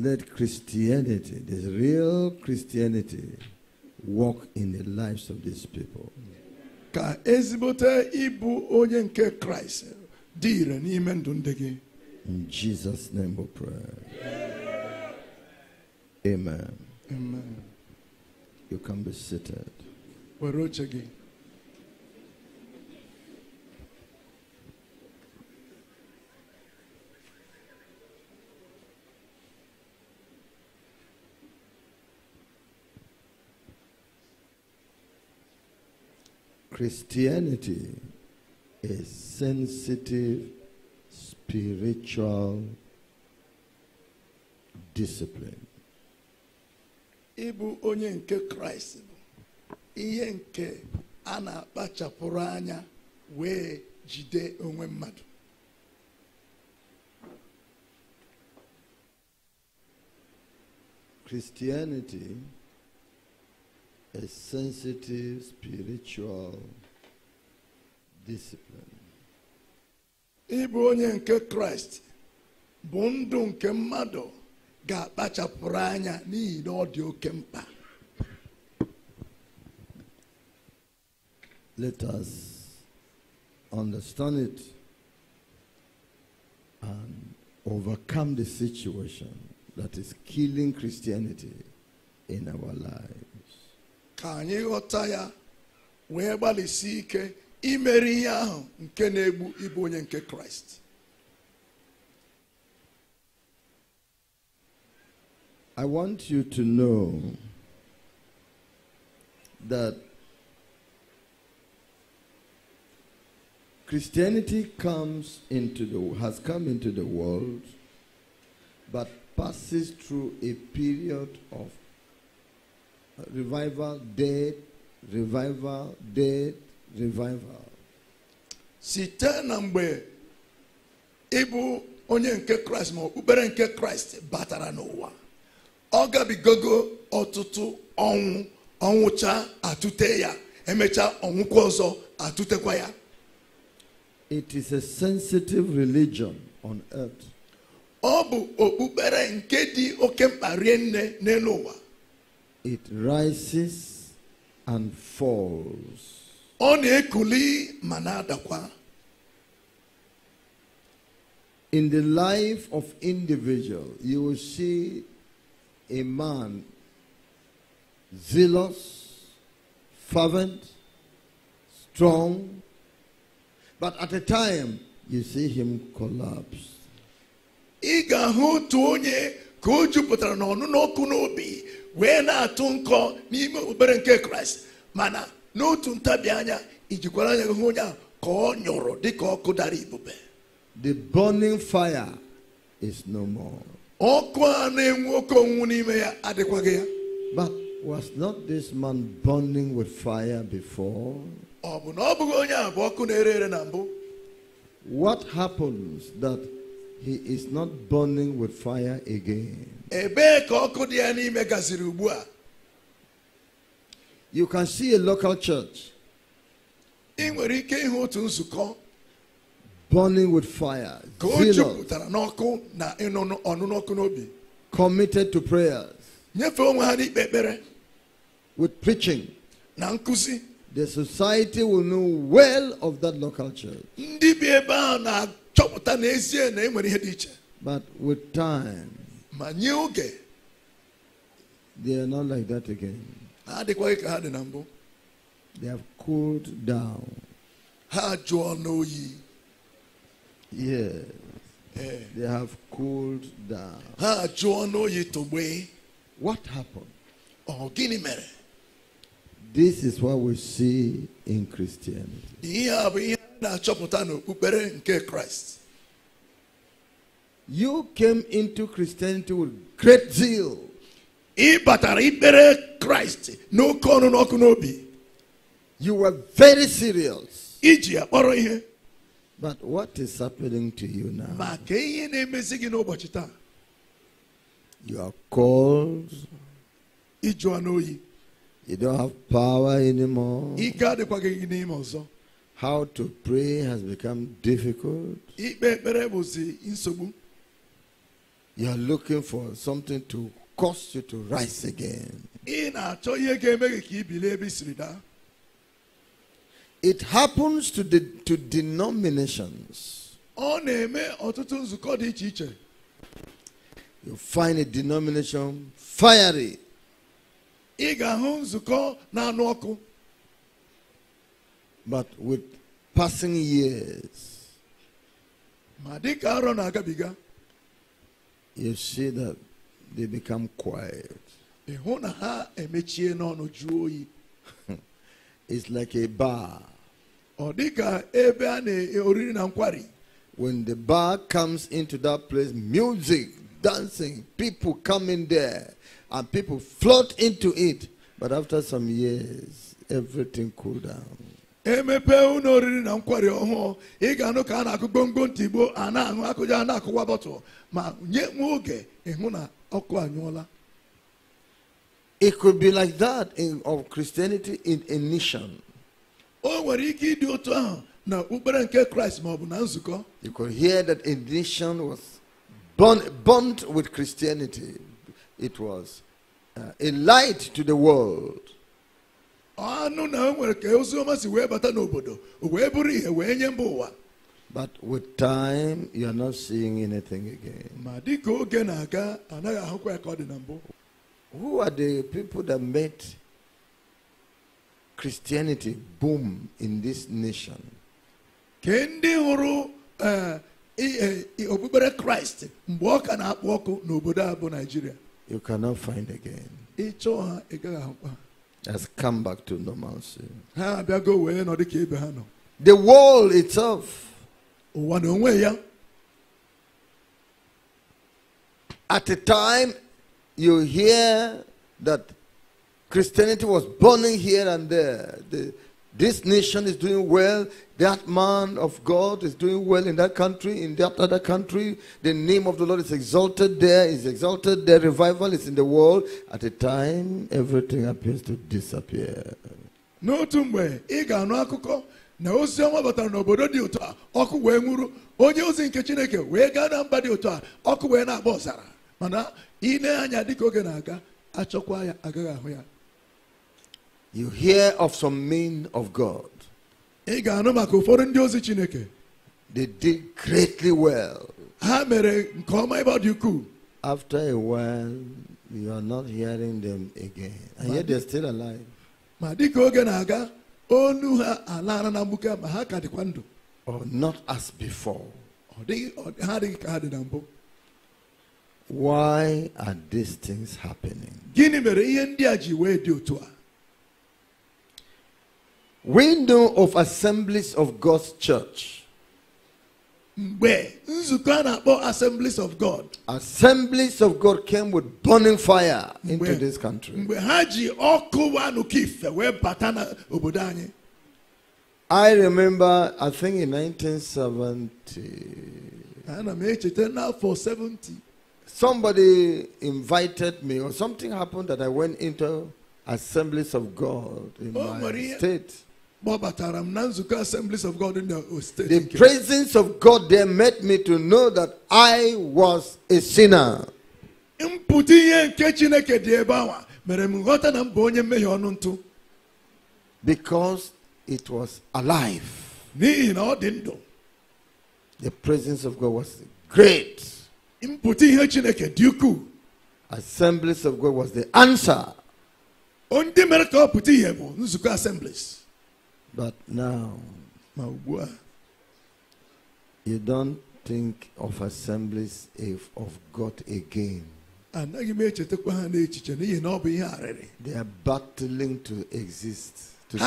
Let Christianity, this real Christianity, walk in the lives of these people. Ka ezigbote ịbụ onye nke Kraịst n'ime ndụ ndị gị. In Jesus' name we pray. Amen. Amen. You can be seated. Were oche gị. Christianity is sensitive spiritual discipline. Ịbụ onye nke Kraịst bụ ihe nke a na-akpachapụrụ anya wee jide onwe mmadụ. Christianity a sensitive spiritual discipline. Ịbụ onye nke Kraịst bụ ndụ nke mmadụ ga-akpachapụrụ anya n'ihi na ọ dị oke mkpa. Let us understand it and overcome the situation that is killing Christianity in our lives ka anyị ghọta ya wee gbalịsi ike imeri ihe ahụ nke na-egbu ịbụ onye nke kraịst I want you to know that Christianity comes into the has come into the world but passes through a period of revival, death, revival, Site na mgbe ịbụ onye nke Kraịst ma okpukpere nke Kraịst batara n'ụwa ọ gabigogo ọtụtụ ọnwụ ọnwụcha atụte ya emecha ọnwụkwa ọzọ atụtekwa ya. It is a sensitive religion on earth. Ọ bụ okpukpere nke dị oke mkpa rie nne n'elu ụwa. it rises and falls. In the life of individual, you will see a man zealous, fervent, strong, but at a time you see him collapse. n'obi wee na-atụ nkọ n'ime obere nke kraịst mana n'otu ntabi anya ijikwara anya hụ onye ka ọ nyụrụ dịka ọkụ dara ibube the burning fire is no more ọkụ a na-enwu oke onwunwu n'ime ya adịkwaghị ya but was not this man burning with fire before ọ bụ na ọ bụghị onye a bụ ọkụ na-ere ere na mbụ what happens that he is not burning with fire again You can see a local church burning with fire, committed to prayers, with preaching. The society will know well of that local church. But with time, my new oge they are not like that again ha adịkwaghị ka ha they have cooled down ha jụọ n'oyi yes yeah. they have cooled down ha what happened Oh, Guinea mere this is what we see in christianity you came into Christianity with great zeal. ịbatara ikpere kraịst no ọnụ n'obi you were very serious iji but what is happening to you now ma you are cold you don't have power anymore how to pray has become difficult you are looking for something to cause you to rise again. It happens to the to denominations. You find a denomination fiery. But with passing years, you see that they become quiet. it's like a bar. When the bar comes into that place, music, dancing, people come in there, and people float into it. But after some years, everything cool down oriri na nkwari ọhụụ ị ga-anụ ka a na-akụ ntị igbo a na-aṅụ akụja a na-akụwa ma nye nwa oge ịhụ na ọkụ anyụọla It could be like that in, of Christianity in a nation. You could hear that a nation was born, burnt with Christianity. It was uh, a light to the world. anụ na nwere ka oziọma si wee bata n'obodo wee bụrụ ihe wee nye mba ụwa But with time, you are not seeing anything again. Ma dị ka oge na-aga anaghị ahụkwa ya ka ọ dị na mbụ. Who are the people that made Christianity boom in this nation? Ke ndị hụrụ eh, eh, okpukpere Kraịst mgbe ọ ka na-akpọ ọkụ n'obodo a bụ naijiria. You cannot find again. Ịchọ ha ị gaghị ahụkwa. has come back to normalcy. The world itself at a time you hear that Christianity was burning here and there. The, this nation is doing well. That man of God is doing well in that country, in that other country. The name of the Lord is exalted there, is exalted there. Revival is in the world. At a time, everything appears to disappear. N'otu mgbe ị ga-anụ akụkọ na ozi ọma batara n'obodo dị otu a ọkụ wee nwụrụ onye ozi nke Chineke wee gaa na mba dị otu a ọkụ wee na-agba ọzara mana ị nee anya dịka oge na-aga achọkwa ya agaghị ahụ ya you hear of some men of God. They did greatly well. After a while, you are not hearing them again. And yet they're still alive. Or not as before. Why are these things happening? Window of Assemblies of God's Church. Where is nzukọ a na Assemblies of God. Assemblies of God came with burning fire into this country. I remember, I think in nineteen seventy. I bata n'obodo anyị. I remember, I think in 1970. Somebody invited me, or something happened that I went into Assemblies of God in my state. The presence of God there made me to know that I was a sinner. Because it was alive. The presence of God was great. Assemblies of God was the answer. assemblies. But now, you don't think of assemblies if of God again. Eh, they are battling to exist to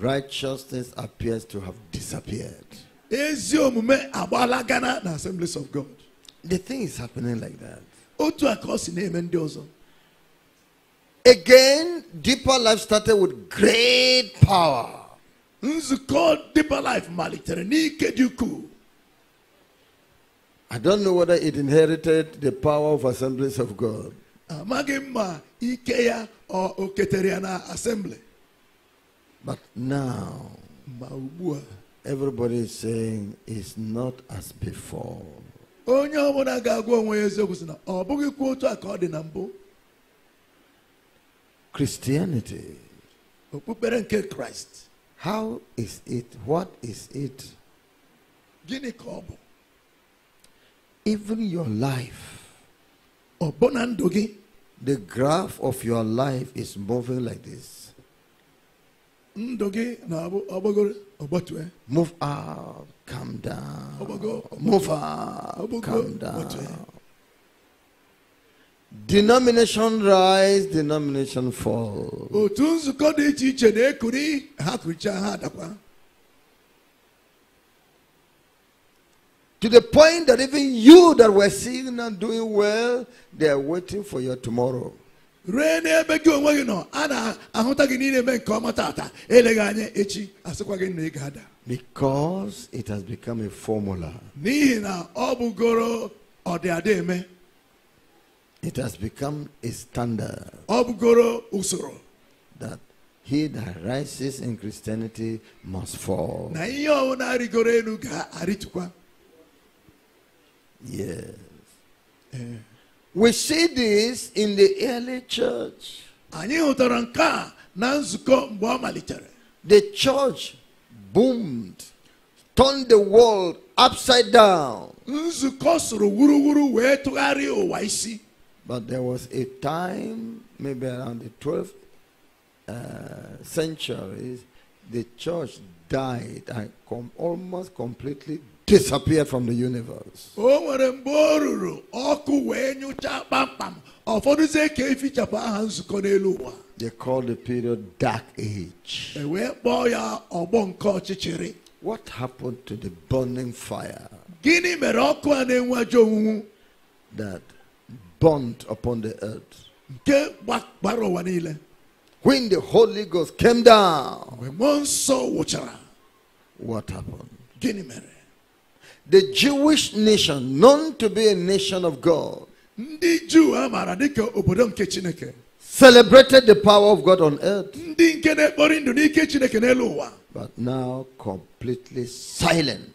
righteousness appears to have disappeared the thing is happening like that Again, deeper life started with great power. This called deeper life malitere ni dị ukwuu. I don't know whether it inherited the power of assemblies of God. Amaghị ah, ikeya or ike assembly. But now, Everybody is saying it's not as before. Onye ọbụla ga-agwa onwe ya eziokwu sị na ọ Christianity. Christ. How is it? What is it? Even your life. The graph of your life is moving like this. gị na-abụ Move up, come down. Move up, come down. Denomination rise, denomination fall. To the point that even you that were seeing and doing well, they are waiting for your tomorrow. a echi Because it has become a formula. It has become a standard. That he that rises in Christianity must fall. Yes. Eh. we see this in the early church. The church boomed, turned the world upside down. But there was a time, maybe around the 12th uh, century, the church died and com almost completely disappeared from the universe. Oh, they call the period dark age. What happened to the burning fire? That burnt upon the earth. When the Holy Ghost came down, what happened? The Jewish nation, known to be a nation of God, celebrated the power of God on earth, but now completely silent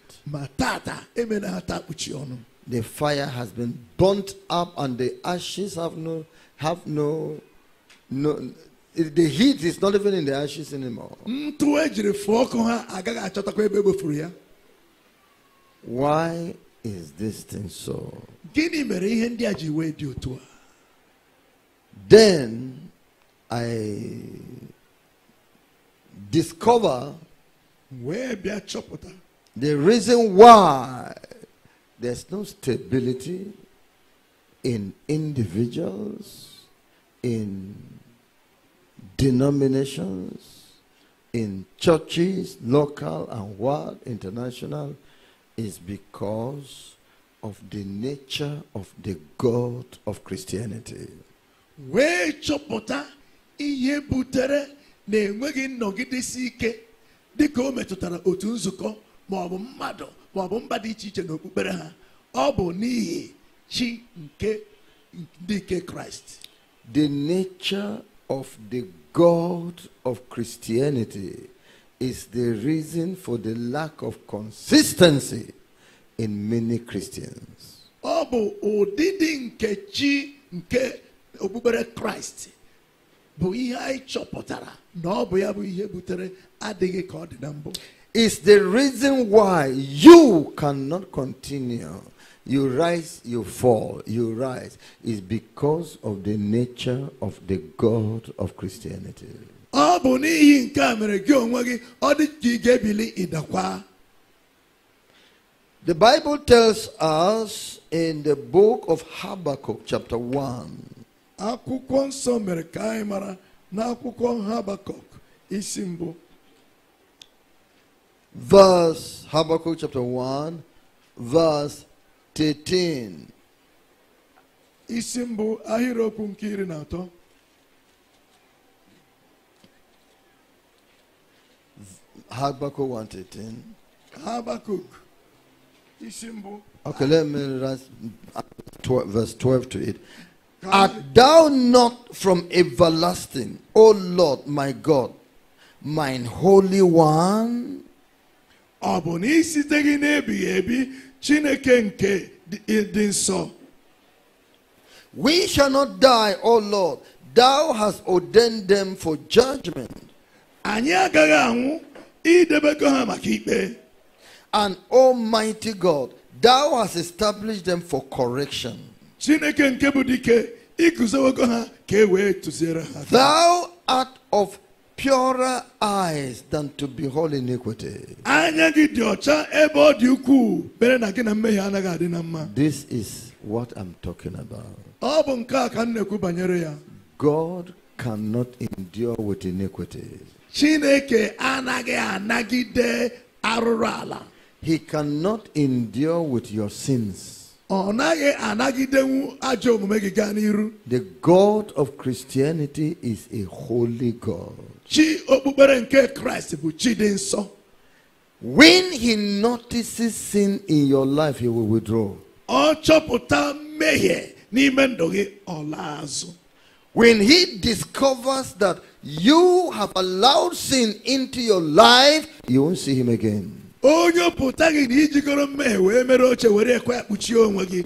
the fire has been burnt up and the ashes have no have no no the heat is not even in the ashes anymore. Why is this thing so? Then I discover the reason why there's no stability in individuals, in denominations, in churches, local and world, international, is because of the nature of the God of Christianity. wee chọpụta ihe butere na enweghị nnọgidesi ike dịka o metụtara otu nzukọ ma mmadụ ma ọ bụ mba dị iche iche n'okpukpere ha ọ bụ n'ihi chi nke ndị nke kraịst the nature of the god of christianity is the reason for the lack of consistency in many christians ọ bụ ụdịdị nke chi nke okpukpere kraịst bụ ihe anyị chọpụtara na ọ bụ ya bụ ihe butere adịghị ka ọ dị na mbụ is the reason why you cannot continue. You rise, you fall, you rise. Is because of the nature of the God of Christianity. The Bible tells us in the book of Habakkuk, chapter 1. Habakkuk verse Habakkuk chapter 1, verse 13. isi mbụ ahịrịokwu nke Habakkuk 1:13. Habakkuk Okay, let me read verse 12 to it. Art thou not from everlasting, O Lord, my God, mine holy one? ọ bụ na isite gị n'ebighị ebi Chineke nke dị nsọ We shall not die, O Lord. Thou hast ordained them for judgment. Anyị agaghị anwụ idebego ha maka ikpe. And Almighty God, thou hast established them for correction. Chineke nke bụ dike iguzowego ha ka e wee tụziere ha. Thou art of purer eyes than to behold iniquity. This is what I'm talking about. God cannot endure with iniquity. He cannot endure with your sins. The God of Christianity is a holy God chi okpukpere nke bụ chi dị nsọ when he notices sin in your life he will withdraw ọ chọpụta mmehie n'ime ndụ gị ọ laa azụ when he discovers that you have allowed sin into your life you won't see him again onye pụta gị na ijikọrọ mmehie wee mere oche were ekwe onwe gị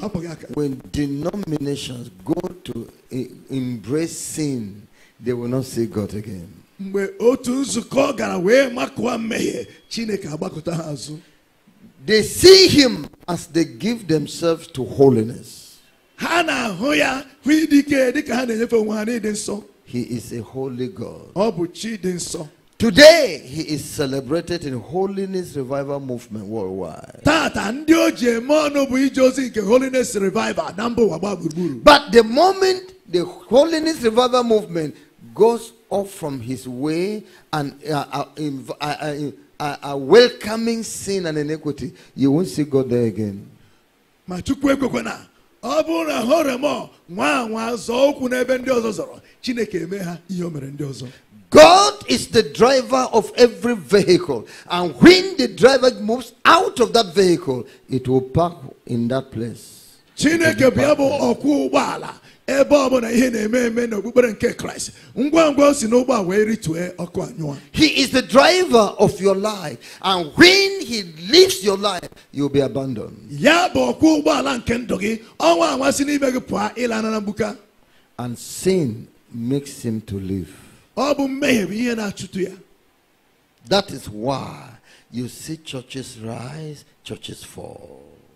hapụ gị aka when denominations go to eh, embrace sin they will not see God again. They see Him as they give themselves to holiness. He is a holy God. Today, he is celebrated in Holiness Revival Movement worldwide. But the moment the Holiness Revival Movement goes off from his way and uh, uh uh, uh, uh, uh, welcoming sin and iniquity, you won't see God there again. ma chukwu ekwekwe na ọ bụrụ na horemo remọ nwa anwa zọọ ụkwụ n'ebe ndị ọzọ zọrọ chineke eme ha ihe o mere ndị ọzọ God is the driver of every vehicle. And when the driver moves out of that vehicle, it will park in that place. Chineke bụ bụ ọkwọ ụgbọala ebe ihe na-eme eme nke kraịst ngwa ngwa o si n'ụgbọ a wee ọkụ anyụọ he is the driver of your life and when he leaves your life you will be abandoned ya bụ ụgbọala nke ndụ gị ọnwa anwa si gị pụọ ịla na and sin makes him to live ọ bụ mmehie bụ ihe na-achụtụ ya that is why you see churches rise churches fall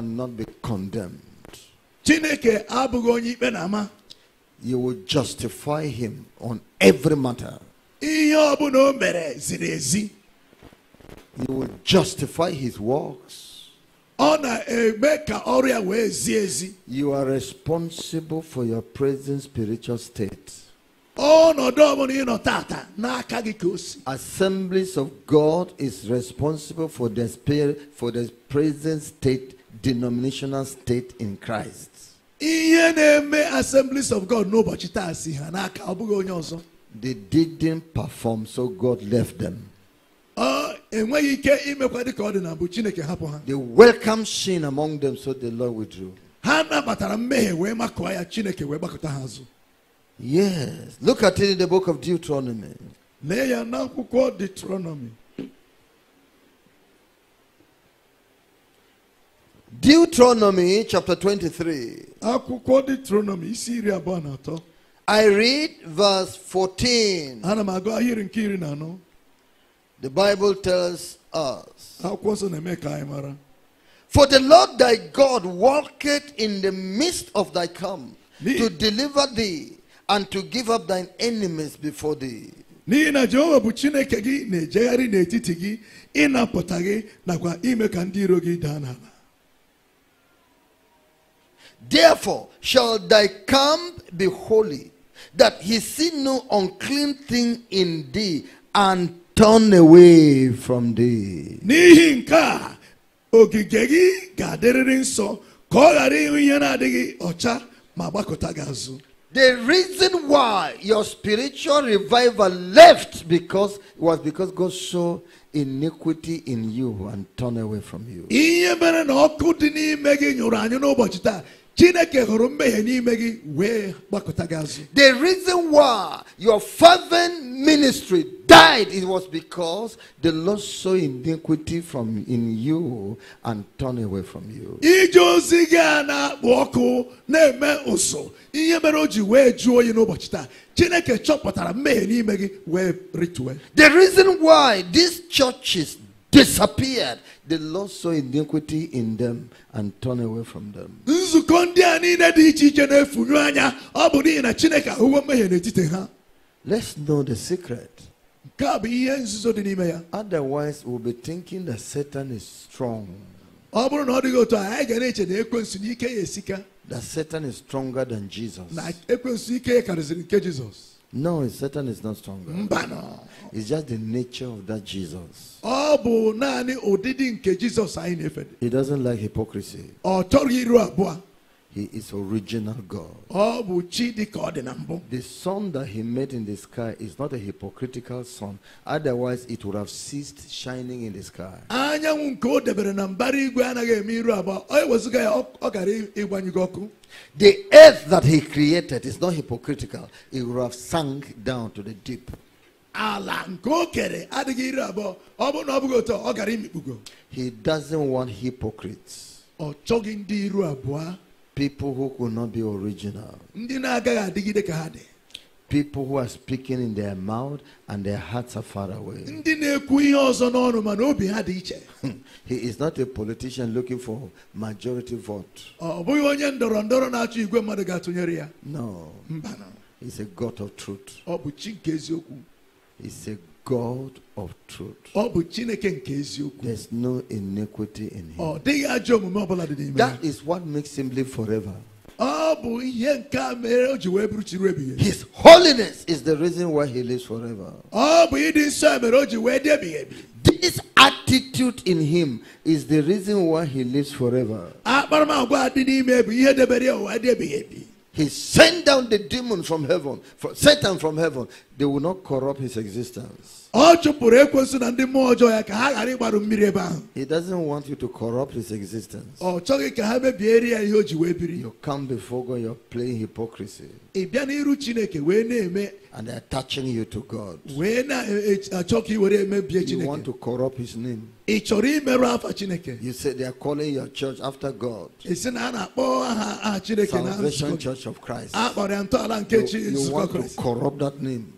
cannot be condemned. You will justify him on every matter. You will justify his works. You are responsible for your present spiritual state. Assemblies of God is responsible for the spirit for the present state denominational state in Christ. Ihe na-eme assemblies of God n'ụbọchị taa si ha n'aka ọ bụghị onye ọzọ. They didn't perform so God left them. Ọ enweghị ike imekwa dịka ọ dị na mbụ Chineke hapụ ha. They welcomed sin among them so the Lord withdrew. Ha nabatara mmehie wee makụọ ya Chineke wee gbakọta ha azụ. Yes, look at it in the book of Deuteronomy. Lee ya n'akwụkwọ Deuteronomy. Deuteronomy chapter 23. I read verse 14. The Bible tells us. For the Lord thy God walketh in the midst of thy camp to deliver thee and to give up thine enemies before thee. n'ihi na jehova bụ chineke gị na-ejegharị n'etiti gị ịnapụta gị nakwa ime ka ndị iro gị daa n'ala Therefore shall thy camp be holy, that he see no unclean thing in thee, and turn away from thee. na ọcha The reason why your spiritual revival left because was because God saw iniquity in you and turned away from you. The reason why your fervent ministry died it was because the Lord saw iniquity from in you and turned away from you. The reason why these churches disappeared. The Lord saw iniquity in them and turned away from them. Let's know the secret. Otherwise, we'll be thinking that Satan is strong. That Satan is stronger than Jesus. No, Satan is not stronger. Mbano. It's just the nature of that Jesus. He doesn't like hypocrisy. He is original God. The sun that he made in the sky is not a hypocritical sun. Otherwise it would have ceased shining in the sky. The earth that he created is not hypocritical. It would have sunk down to the deep. he doesn't want hypocrites People who could not be original. People who are speaking in their mouth and their hearts are far away. he is not a politician looking for majority vote. No. He's a God of truth. He's a God of truth. There's no iniquity in him. That is what makes him live forever. His holiness is the reason why he lives forever. This attitude in him is the reason why he lives forever he sent down the demon from heaven, from Satan from heaven, they will not corrupt his existence. He doesn't want you to corrupt his existence. ya You come before God, you're playing hypocrisy and they're attaching you to God. You want to corrupt his name. You say they are calling your church after God, a Salvation Church of Christ. You, you want to corrupt that name.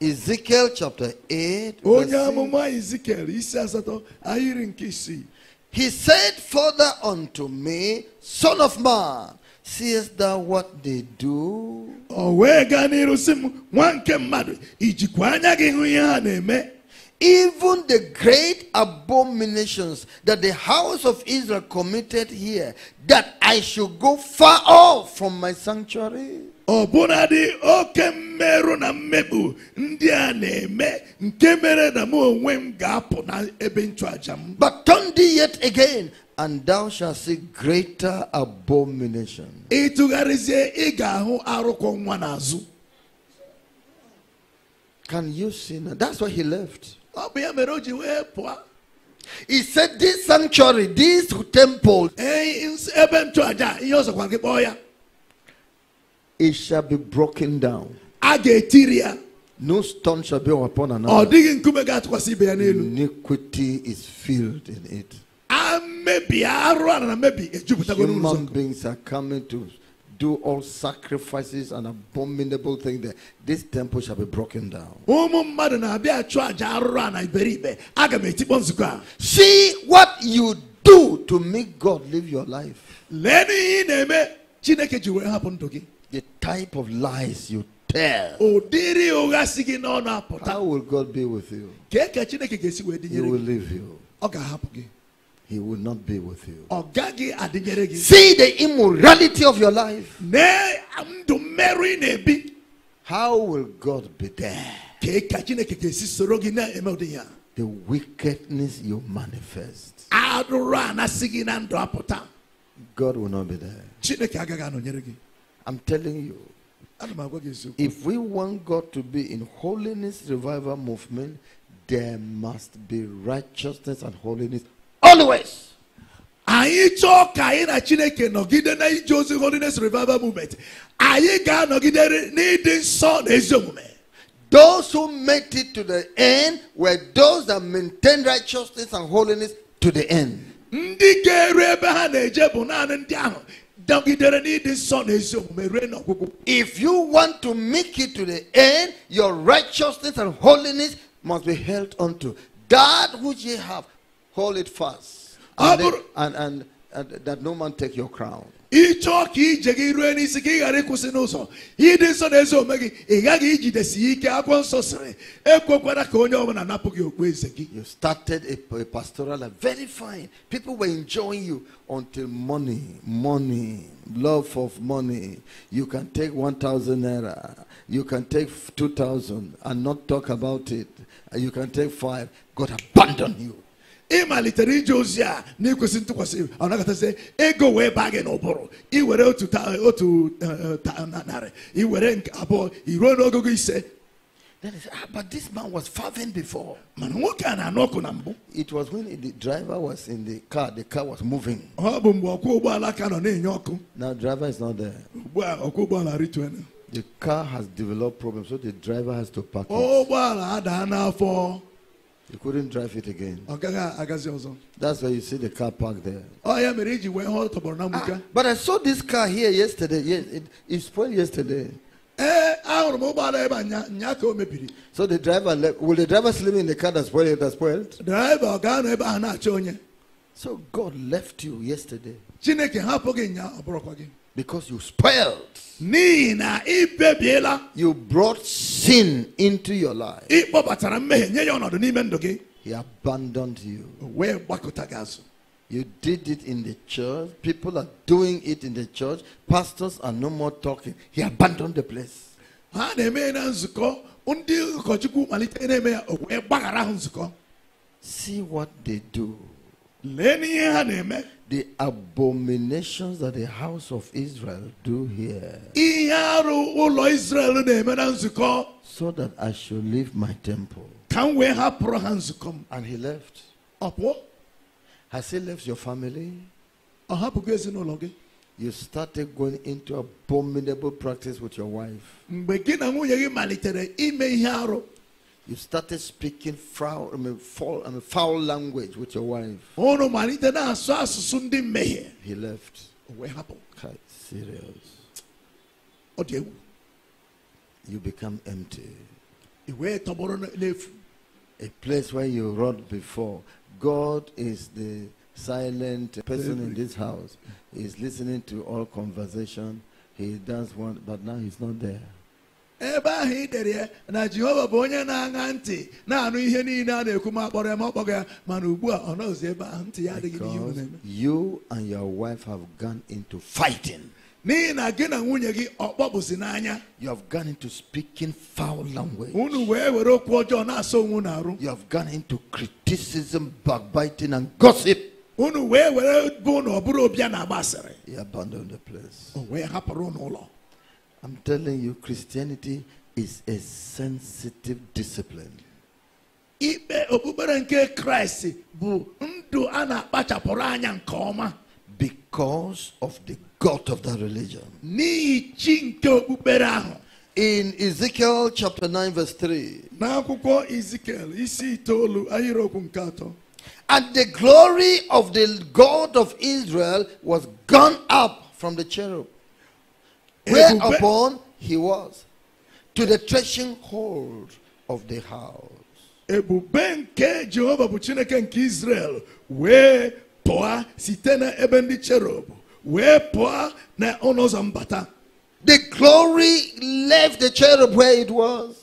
Ezekiel chapter 8. Onye Ezekiel He said further unto me, Son of man, seest thou what they do? Even the great abominations that the house of Israel committed here, that I should go far off from my sanctuary. ọbụnadị oke mmerụ na mmegbu ndị a na-eme nke mere na mụ onwe m ga-apụ na ebe nchụaja m but turn thee yet again and thou shalt see greater abomination ị tụgharịzie ị ga-ahụ arụkwọ nwa n'azụ can you see now? That's why he left. Ọ bụ ya mere wee He said, This sanctuary, this temple. it shall be broken down. A No stone shall be upon another. Ọ digging nkume ga-atụkwasị ibe Iniquity is filled in it. A mebi arụ ara na mebi eh, ejupụtago n'ụzọ. Human beings are coming to do all sacrifices and abominable things there. This temple shall be broken down. Ụmụ mmadụ na-abịa achụ àjà arụrụ a na iberibe. Aga See what you do to make God live your life. Lee n'ihe ị na-eme the type of lies you tell. How will God be with you? He will leave you. He will not be with you. See the immorality of your life. How will God be there? The wickedness you manifest. God will not be there. I'm telling you. If we want God to be in holiness revival movement, there must be righteousness and holiness always. anyị chọọ ka anyị na chineke nọgide na ozi holiness revival movement anyị ga-anọgide n'ịdị nsọ na ezi omume those who made it to the end were those that maintained righteousness and holiness to the end ndị ga-eru ebe ha na-eje bụ naanị ndị ahụ if you want to make it to the end, your righteousness and holiness must be held unto. That which ye have, hold it fast. And, ah, then, and, and, and that no man take your crown ịchọọ ije gị rue n'isi ka ị ghara ịkwụsị n'ụzọ ịdị nsọ na ezi omume gị ị gaghị ijidesi ike akwụkwọ nsọ sịrị ekwekwara ka onye ọbụla napụ gị okpueze gị you started a, a pastoral life very fine people were enjoying you until money money love of money you can take 1000 naira you can take 2000 and not talk about it you can take five god abandon you ịmalitere ije ozi a na-ekwesị ntụkwasị ọ nagatazie ego wee baa gị n'ụbụrụ iwere otu otu eh, eh, narị iwere nke abụọ iruo n'ogogo ise That is, ah, but this man was farming before. It was when the driver was in the car, the car was moving. Now driver is not there. The car has developed problems, so the driver has to park. It. You couldn't drive it again. That's why you see the car parked there. Oh, ah, but I saw this car here yesterday. Yes, it, it spoiled yesterday. Eh, so the driver left. Will the driver sleep in the car that spoiled? That spoiled? So God left you yesterday. Because you spoiled. You brought sin into your life. He abandoned you. You did it in the church. People are doing it in the church. Pastors are no more talking. He abandoned the place. See what they do. The abominations that the house of Israel do here. So that I should leave my temple. And he left. Has he left your family? You started going into abominable practice with your wife. You started speaking foul, I mean, foul, I mean, foul language with your wife. He left. happened? serious. You become empty. A place where you wrote before. God is the silent person in this house. He's listening to all conversation. He does want, but now he's not there. ebe ahụ ị dere ya na jehova bụ onye na-aṅa ntị na-anụ ihe niile a na-ekwu ma kpọrọ ya ma ọkpọga ya mana ugbu a ọ nọzi ebe ahụ ntị ya adịghị n'ihe unu na you and your wife have gone into fighting n'ihi na gị na nwunye gị ọkpọbụzi n'anya you have gone into speaking foul language unu wee were okwu ọjọọ na-asa onwe unu arụ you have gone into criticism backbiting and gossip unu wee were bụ na ọ bụrụ obi a na agba asịrị he abandoned the place o wee hapụrụ n'ụlọ I'm telling you, Christianity is a sensitive discipline. Ibe okpukpere nke Kraịst bụ ndụ ana na-akpachapụrụ anya nke ọma. Because of the God of that religion. N'ihi chi nke okpukpere ahụ. In Ezekiel chapter 9 verse 3. N'akwụkwọ Ezekiel isi itoolu ahịrịokwu nke atọ. And the glory of the God of Israel was gone up from the cherub. Whereupon he was to the threshing hold of the house. ebube nke jehova bụ israel cherub where pụọ na ọnụ the glory left the cherub where it was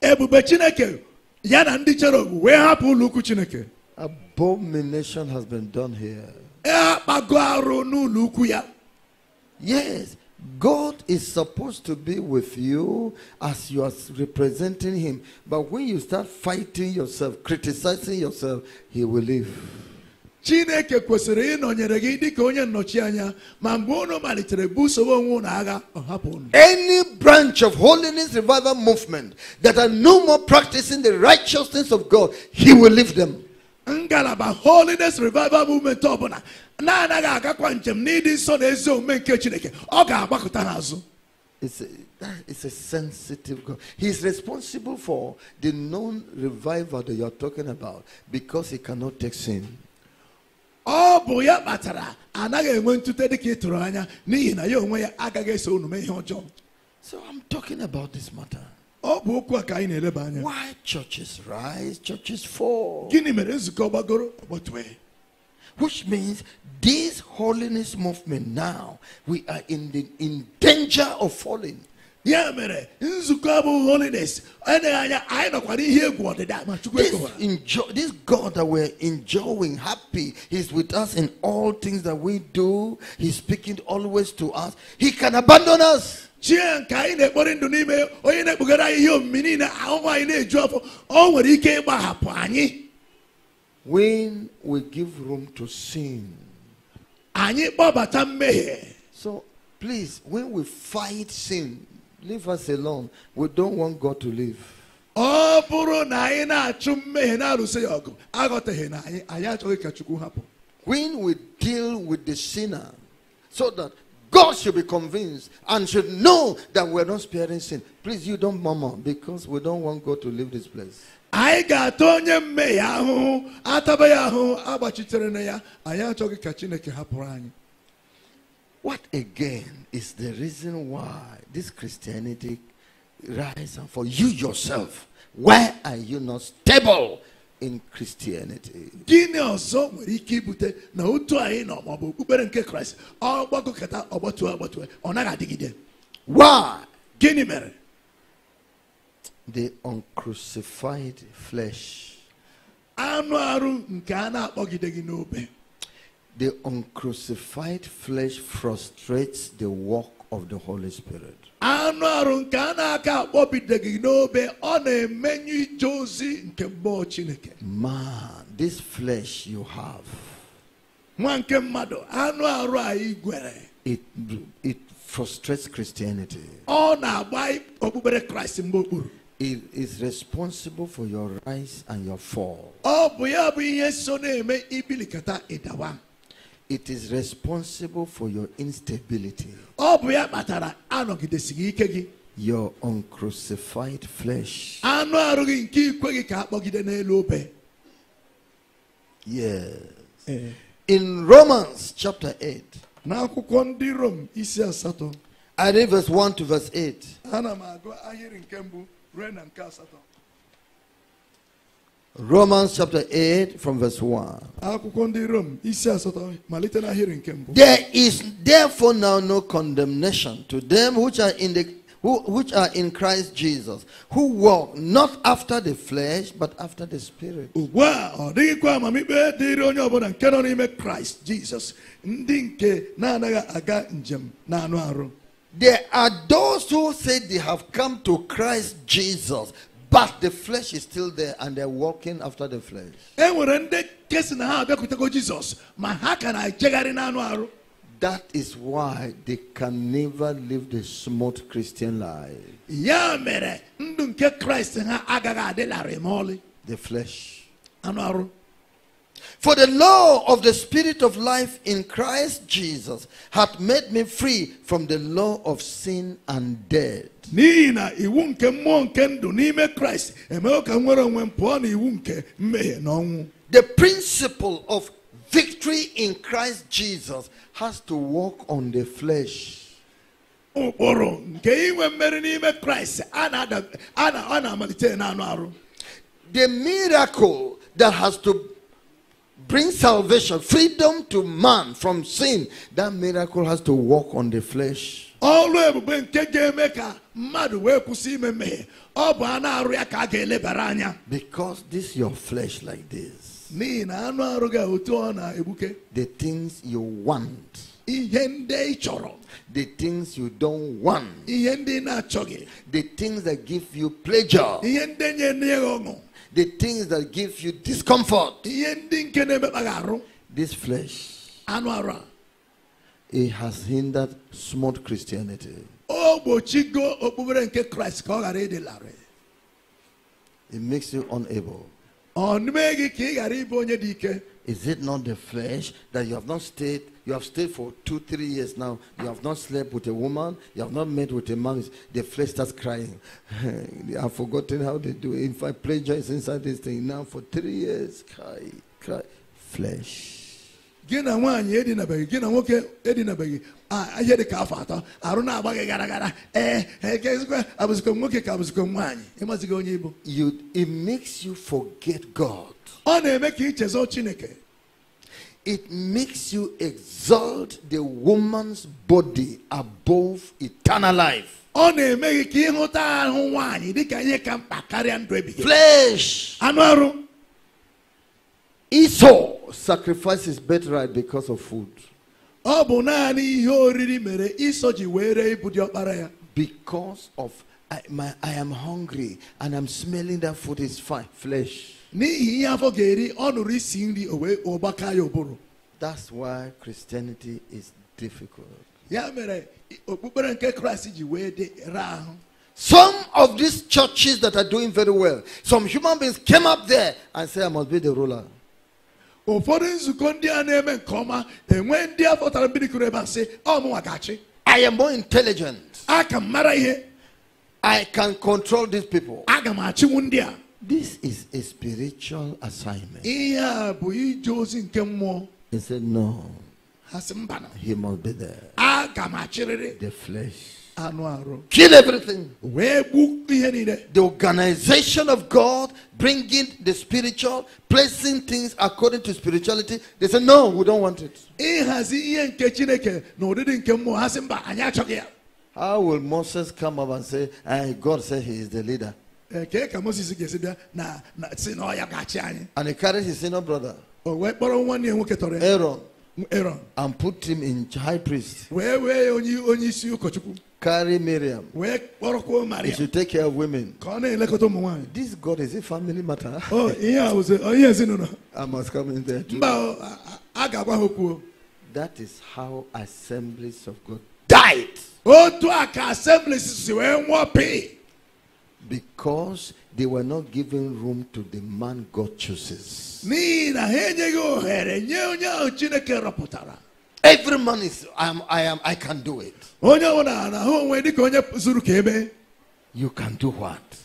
ndị cherub abomination has been done here yes God is supposed to be with you as you are representing Him. But when you start fighting yourself, criticizing yourself, He will leave. chineke kwesịrị ịnọnyere gị dịka onye ma mgbe unu malitere busowe onwe unu agha ọ hapụ unu any branch of holiness revival movement that are no more practicing the righteousness of god he will leave them ngalaba holiness revival movement ọbụla na-anaghị agakwa njem n'ịdị nsọ na ezi omume nke chineke ọ ga-agbakọta n'azụ It's a, sensitive God. He's responsible for the known revival that you're talking about because he cannot take sin. So I'm talking about this matter. Why churches rise, churches fall? Which means this holiness movement now, we are in, the, in danger of falling ya mere nzukọ bụ holiness eneghị anya anyị nọkwara ihe egwu ọdịda ma chukwu this god that we're enjoying happy he's with us in all things that we do he's speaking always to us he can abandon us chie nke anyị na-ekpori ndụ n'ime onye na-ekpugara anyị ihe niile ahụhụ anyị na-eju ọ nwere ike ịgbahapụ anyị when we give room to sin anyị kpọbata mmehie so please when we fight sin Leave us alone. We don't want God to leave. ọ bụrụ na anyị na-achụ mmehie na-alụso ya ọgụ aghọtaghị na achu mmehie na anyị achọghị ka chukwu hapụ When we deal with the sinner, so that God should be convinced and should know that we're not sparing sin. Please, you don't murmur because we don't want God to leave this place. anyị ga-ata onye mmehie ahụhụ ataba ya ahụhụ agbachitere na ya anyị achọghị ka chineke hapụrụ anyị What again is the reason why this Christianity rise and for you yourself. Why are you not stable in Christianity? Gịnị ọzọ nwere ike ibute na otu anyị nọ ma okpukpere nke Kraịst ọ ọgbatụ ọgbatụ ọ naghị adịgide? Why? Gịnị mere? The uncrucified flesh. Anụ arụ nke a na-akpọgideghị n'obe. The uncrucified flesh frustrates the work of the Holy Spirit. Man, this flesh you have. It, it frustrates Christianity. It is responsible for your rise and your fall. It is responsible for your instability. Your uncrucified flesh. Yes. Eh. In Romans chapter 8. I read verse 1 to verse 8. Romans chapter 8 from verse 1. There is therefore now no condemnation to them which are in the who, which are in Christ Jesus, who walk not after the flesh, but after the spirit. There are those who say they have come to Christ Jesus, but the flesh is still there and they're walking after the flesh. That is why they can never live the smooth Christian life. The flesh. For the law of the Spirit of life in Christ Jesus hath made me free from the law of sin and death n'ihi na iwu nke mmụọ nke ndụ n'ime kraịst emewo ka nwere onwe m pụọ na iwu nke mmehie na ọnwụ the principle of victory in christ jesus has to work on the flesh ụkpụrụ nke inwe mmeri n'ime kraịst na-amalite n'anụ arụ the miracle that has to bring salvation freedom to man from sin that miracle has to work on the flesh ọrụ ebube nke ga-eme ka mmadụ wee kwụsị ime mmehie ọ bụ anụ arụ ya ka a ga-elebara anya because this your flesh like this n'ihi na anụ arụ gị otu ọ na-egbuke the things you want ihe ndị ị chọrọ the things you don't want ihe ndị ị na-achọghị the things that give you pleasure ihe ndi ọṅụ the things that give you discomfort ihe ndị nke na-emekpa gị arụ this flesh anụ arụ a it has hindered smart Christianity. It makes you unable. Is it not the flesh that you have not stayed? You have stayed for two, three years now. You have not slept with a woman. You have not met with a man. The flesh starts crying. I've forgotten how they do it. In fact, pleasure is inside this thing now for three years. Cry, cry. Flesh gị nwaanyị edinabeghị gị nwoke edinabeghị ihe dị ka afọ atọ arụ na-agba gị gara gara ee ekekwa nwoke ka abụzikwa nwaanyị ịmazighị onye ibo you it makes you forget God ọ na-eme ka ichezo Chineke it makes you exalt the woman's body above eternal life ọ na-eme gị ka ịhụta ahụ nwaanyị dịka ihe ka mkpa karịa ndụ ebighị flesh anụ arụ Esau sacrificed his birthright because of food. Because of I, my, I am hungry and I'm smelling that food is fine, flesh. That's why Christianity is difficult. Some of these churches that are doing very well, some human beings came up there and said, I must be the ruler ụfọdụ nzukọ ndị a na-eme nke ọma enwe ndị a fọtara mmiri kụrụ ebe a sị ọmụnwa gachi I am more intelligent. Aka m mara ihe. I can control these people. Aga m achịnwu ndị a. This is a spiritual assignment. Ihe a bụ ije ozi nke mmụọ. He said no. Ha sị mba He must be there. Aga m achịrịrị. The flesh. Kill everything. The organization of God, bringing the spiritual, placing things according to spirituality. They say, no, we don't want it. How will Moses come up and say, and God said he is the leader? And he carried his senior brother. Aaron. And put him in high priest. Carry Miriam. You should take care of women. This God is a family matter. oh, yeah, I was. Oh, yes, no, no. I must come in there. Too. That is how assemblies of God died. assemblies to our assemblies, because they were not giving room to the man God chooses. Every man is I am I am I can do it. You can do what?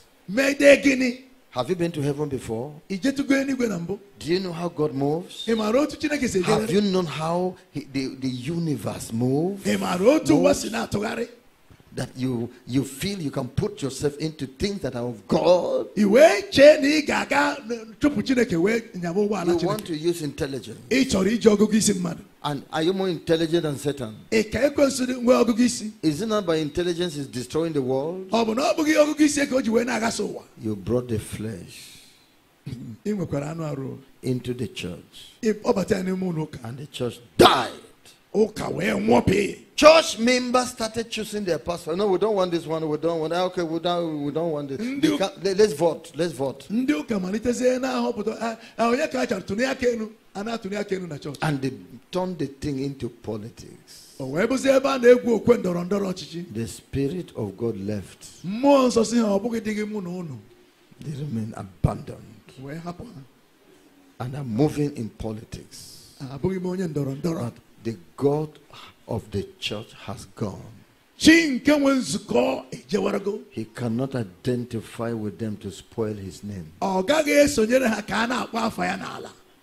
Have you been to heaven before? Do you know how God moves? Have you known how he, the, the universe moves? Ị That you you feel you can put yourself into things that are of God. You want to use intelligence. And are you more intelligent than Satan? Is it not by intelligence is destroying the world? You brought the flesh into the church. And the church died. Church members started choosing their pastor. No, we don't want this one. We don't want. Ah, okay, we don't. We don't want this. Let, us vote. Let's vote. Ah, ah, and they turned the thing into politics. The spirit of God left. They remain abandoned. And are moving in politics. But the God of the church has gone. He cannot identify with them to spoil his name.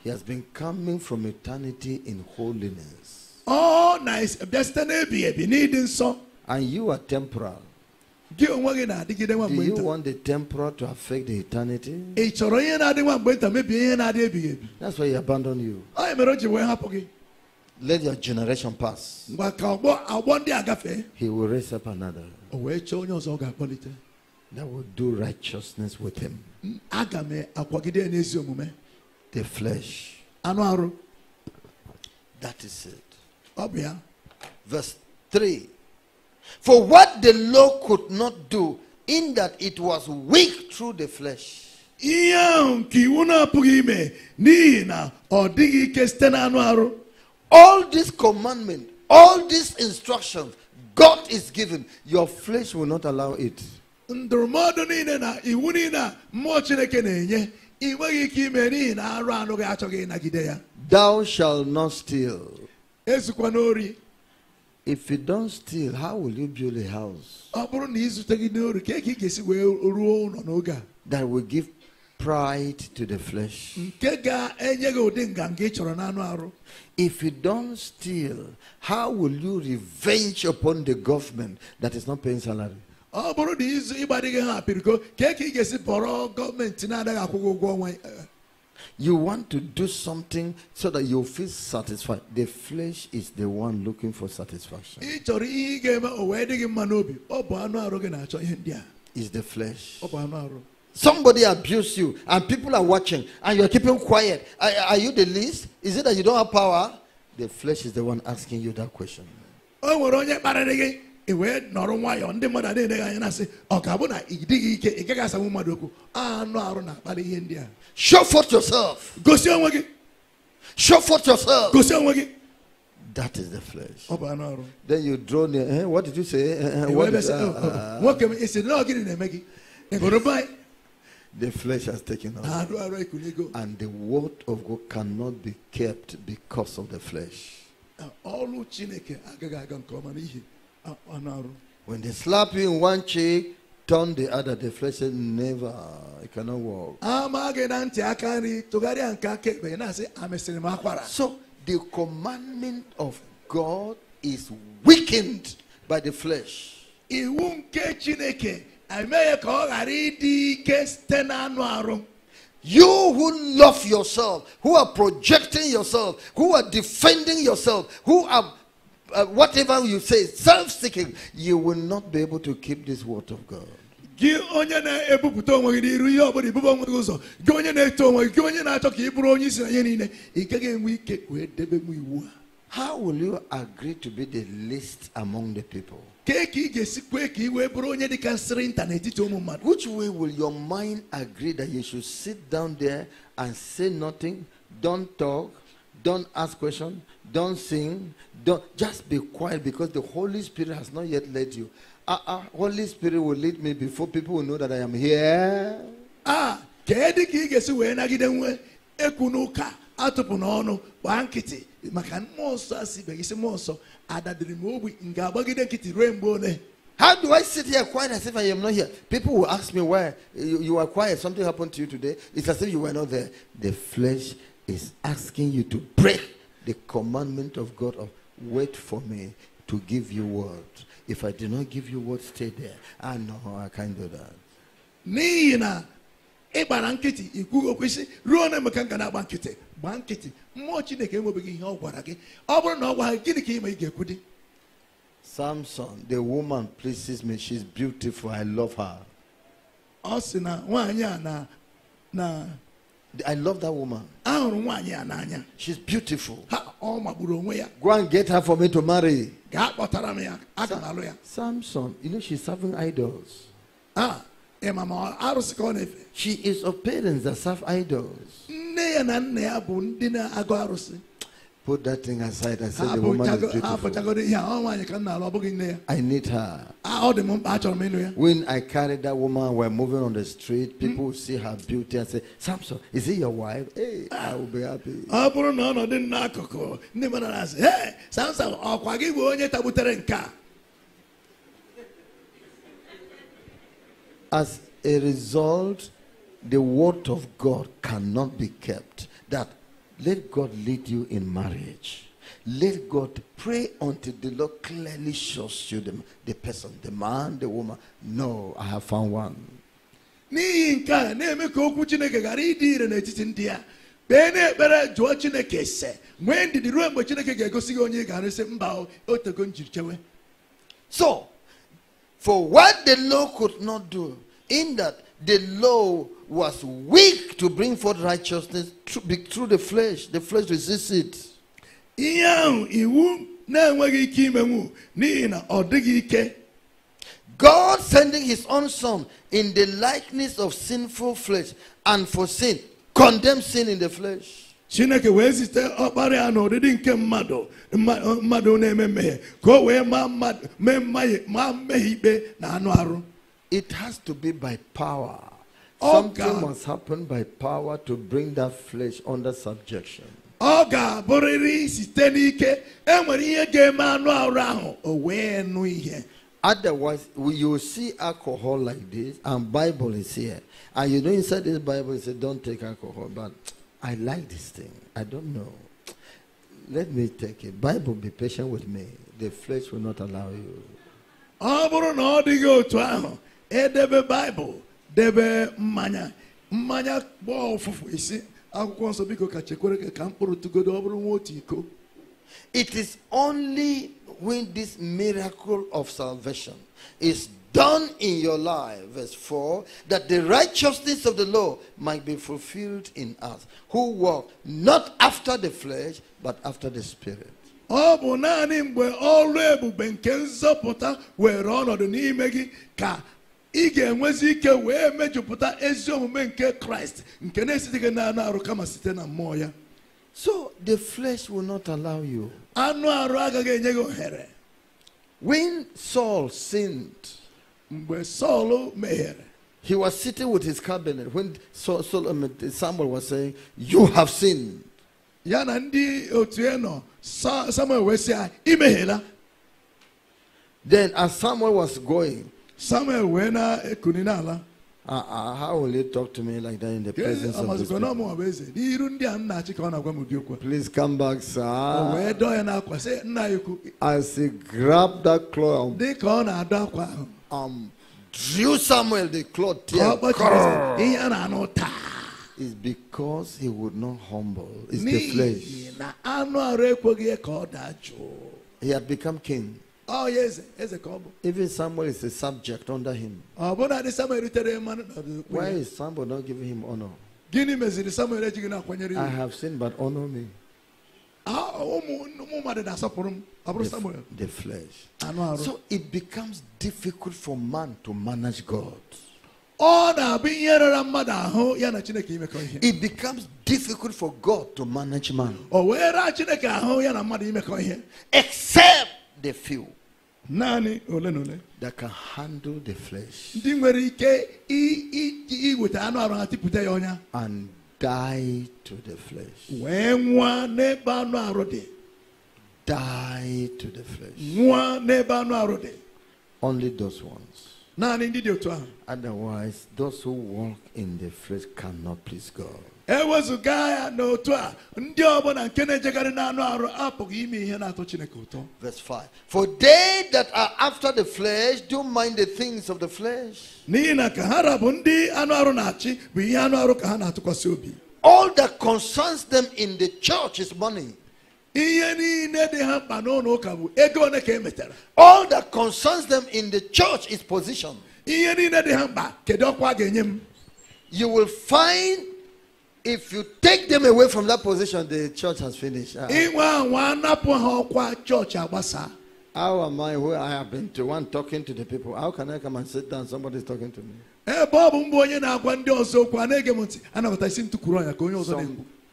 He has been coming from eternity in holiness. Oh, nice. And you are temporal. Do you want the temporal to affect the eternity? That's why he abandoned you. Let your generation pass. He will raise up another that will do righteousness with him. The flesh. That is it. Verse 3. For what the law could not do, in that it was weak through the flesh. ihe nke iwu na-apụghị ime n'ihi na ọ dịghị ike site n'anụ arụ all these commandments, all these instructions God is giving, your flesh will not allow it. Thou shalt not steal. If you don't steal, how will you build a house? That will give pride to the flesh. If you don't steal, how will you revenge upon the government that is not paying salary? Eh. You want to do something so that you feel satisfied. The flesh is the one looking for satisfaction. Is the flesh. Somebody abuse you and people are watching and you're keeping quiet. Are, are, you the least? Is it that you don't have power? The flesh is the one asking you that question. Oh, ah, Show forth yourself. Show forth yourself. That is the flesh. Oh, then you draw near. Eh? What did you say? Eh, eh, eh what is, uh, uh, the flesh has taken over. And the word of God cannot be kept because of the flesh. When they slap you in one cheek, turn the other, the flesh says, Never, it cannot walk. So the commandment of God is weakened by the flesh. You who love yourself, who are projecting yourself, who are defending yourself, who are uh, whatever you say, self seeking, you will not be able to keep this word of God. gị onye na-ebupụta onwe gị n'iru ihe ọbụla onwe gị ụzọ gị onye na-eto onwe gị gị onye na-achọ ka ị bụrụ onye isi na ihe niile ị gaghị enwe ike wee debe m iwu a How will you agree to be the least among the people? Which way will your mind agree that you should sit down there and say nothing, don't talk, don't ask questions, don't sing, don't just be quiet because the Holy Spirit has not yet led you. Ah, uh, uh, Holy Spirit will lead me before people will know that I am here. Ah, kedu atụpụ n'ọnụ gbaa nkịtị maka mmụọ nsọ asị ibe gị si mmụọ nsọ how do I sit here quiet as if I am not here? People will ask me why you, you are quiet. Something happened to you today. It's as if you were not there. The flesh is asking you to break the commandment of God of wait for me to give you word. If I do not give you word, stay there. I ah, know I can't do that. Me na ịgbara nkịtị ikwughị okwu ruo na emeka na-agba nkịtị gbaa nkịtị mmụọ chineke enwebeghị ihe ọ gwara gị ọ bụrụ na ọ gwara gịnị ka ime ị ga-ekwu di Samson, the woman pleases me. She's beautiful. I love her. Ọ sị na nwaanyị a na na I love that woman. Ahụrụ nwaanyị a n'anya. She's beautiful. Ha ọ magburu onwe ya. Go and get her for me to marry. Gaa kpọtara m ya. Aga m alụ ya. Samson, you know she's serving idols. Ah, Eh, she is of parents that serve idols. Put that thing aside and say the woman is beautiful. I need her. When I carried that woman, we're moving on the street. People mm. see her beauty and say, Samson, is he your wife? Hey, eh, I will be happy. Hey, Samson, As a result, the word of God cannot be kept. That let God lead you in marriage. Let God pray until the Lord clearly shows you the, the person, the man, the woman. No, I have found one. n'ihi nke a na-eme ka okwu chineke ghara ịdị ire n'etiti ndị a kpee n'ekpere jụọ chineke ise nwee ndidi ruo mgbe chineke ga-egosi gị so for what the law could not do, in that the law was weak to bring forth righteousness through the flesh, the flesh resists it. God sending his own son in the likeness of sinful flesh and for sin condemned sin in the flesh chineke wee zite ọkpara ya n'ụdịdị nke mmadụ mmadụ na-eme mmehie ka o wee maa mmehie ikpe na anụ arụ it has to be by power something must happen by power to bring that flesh under subjection ọ ga-abụrịrị site n'ike enwere ihe ga-eme anụ arụ ahụ o wee nụ ihe Otherwise, you see alcohol like this, and Bible is here. And you know inside this Bible, it says, don't take alcohol. But I like this thing. I don't know. Let me take it. Bible, be patient with me. The flesh will not allow you. ọ bụrụ na ọ dịghị otu ahụ edebe baịbụl debe mmanya mmanya gbaa ụfụfụ isi akwụkwọ nsọ biko ka chekwere ka mkpụrụ tụgodo ọ bụrụ nwa otu iko it is only when this miracle of salvation is done in your life, verse 4, that the righteousness of the law might be fulfilled in us, who walk not after the flesh, but after the Spirit. ọ bụ naanị mgbe ọrụ ebube nke nzọpụta were ọnọdụ n'ime gị ka ị ga-enwezi ike wee mejupụta ezi omume nke kraịst nke na-esite gị n'anụ arụ kama site na mmụọ ya so the flesh will not allow you anụ arụ agaghị enye gị ohere when saul sinned he was sitting with his cabinet when Samuel was saying, You have sinned. Samuel Then, as Samuel was going, Samuel wee uh, uh, how will you talk to me like that in the presence of the people? Please come back, sir. As he grabbed that cloth, um, drew Samuel the cloth tear. It's because he would not humble. It's the flesh. He had become king. Oh yes, yes, Even Samuel is a subject under him. Oh, Why is Samuel not giving him honor? I have seen, but honor me. Ah, oh, the, flesh. So it becomes difficult for man to manage God. It becomes difficult for God to manage man. Except the few that can handle the flesh and die to the flesh die to the flesh. Only those ones. Otherwise, those who walk in the flesh cannot please God. Verse 5 For they that are after the flesh do mind the things of the flesh. All that concerns them in the church is money. All that concerns them in the church is position. You will find if you take them away from that position, the church has finished. Uh, how am I where I have been to one talking to the people? How can I come and sit down? Somebody is talking to me. Some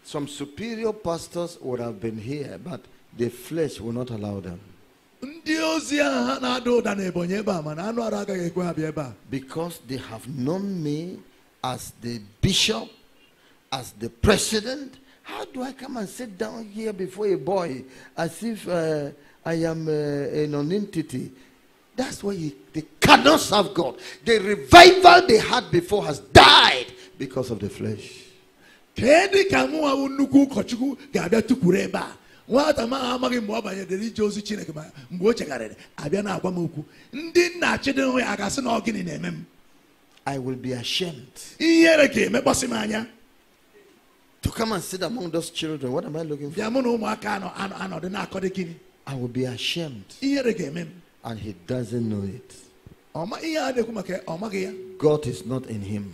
some superior pastors would have been here, but the flesh will not allow them. Because they have known me as the bishop, as the president. How do I come and sit down here before a boy as if uh, I am uh, a nonentity? That's why he, they cannot serve God. The revival they had before has died because of the flesh. kedu ka nwa bụ nnukwu ụkọchukwu ga-abịa tukwuru ebe a nwata ma amaghị mgbe ọ banyedere ije ozi chineke ma mgbe o chegharịrị abịa na-agwa m okwu ndị nna chidịhụ ya ga-asị na ọ gịnị na-eme m I will be ashamed. ihere ga-emekpọsị m anya to come and sit among those children what am I looking for? bịa mụ na ụmụaka anọdụ na-akọ dị gịnị I will be ashamed. ihere ga-eme m and he doesn't know it. ihe a na-ekwu maka ọ maghị ya God is not in him.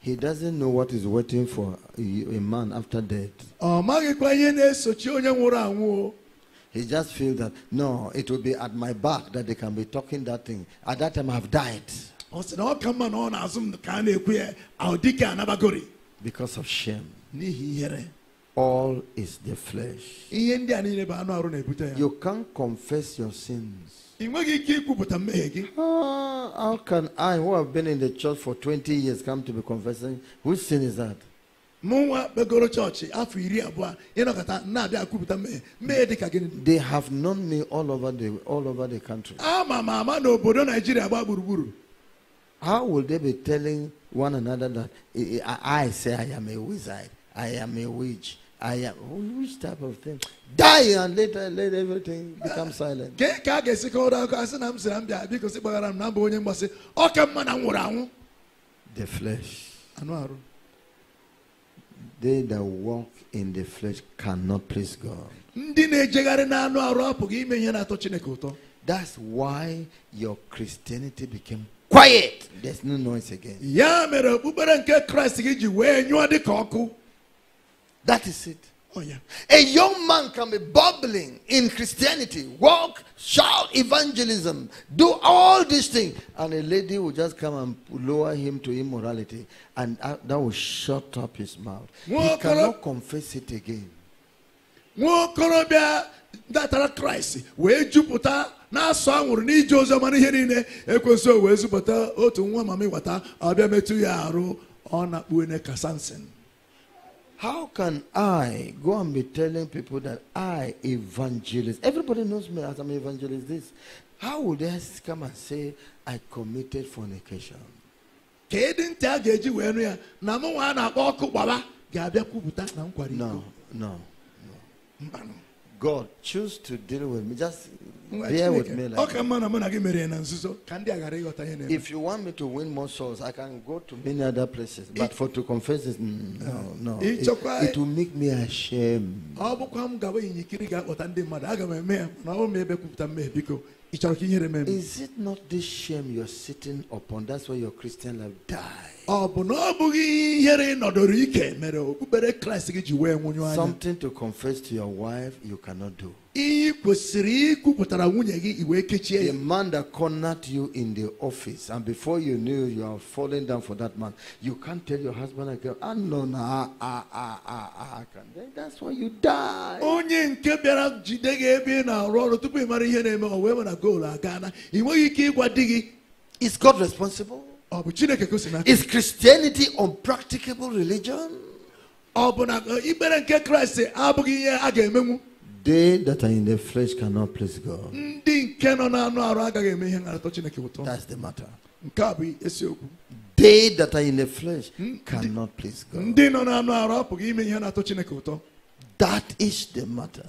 He doesn't know what is waiting for a man after death. He just feels that, no, it will be at my back that they can be talking that thing. At that time, I've died. Because of shame all is the flesh. You can't confess your sins. Ah, how can I, who have been in the church for 20 years, come to be confessing? Which sin is that? They have known me all over the all over the country. How will they be telling one another that I, I say I am a wizard, I am a witch, I am. Oh, which type of thing? Die and later let everything become silent. Ka a ga-esi kọrọ akụkọ asị na m mbịa m na mbụ onye mgbasị ọ mma na nwụrụ anwụ. The flesh. Anụ They that walk in the flesh cannot please God. Ndị na-ejegharị n'anụ arụ apụghị ime ihe na-atọ Chineke ụtọ. That's why your Christianity became quiet. There's no noise again. mere okpukpere nke Kraịst ji wee nyụọ dị ka ọkụ. That is it. Oh, yeah. A young man can be bubbling in Christianity, walk, shout evangelism, do all these things, and a lady will just come and lower him to immorality, and that will shut up his mouth. He cannot confess it again. na na-asụ anwụrụ n'ije n'ihe niile wee zụpụta otu nwa mama ịwata metụ ya arụ ọ how can I go and be telling people that I evangelist? Everybody knows me as I'm evangelist this. How would they come and say I committed fornication? No, no, no. God, choose to deal with me. Just if you want me to win more souls, I can go to many other places. But for to confess this, no, no. It, it will make me ashamed. Ah, is it not this shame you're sitting upon? That's why your Christian life dies. Something to confess to your wife you cannot do. The man that cornered you in the office, and before you knew you are falling down for that man, you can't tell your husband and girl, ah, no, no, ah, ah, ah, ah, ah. that's why you die. onye nke bịara jide gị ị na-arụ ọrụ tupu ị mara ihe na-eme o wee mara goolu ị nweghị ike ịgwa di gị. Is God responsible? Is Christianity unpracticable religion? They that are in the flesh cannot please God. That's the matter. They that are in the flesh cannot please God. That is the matter.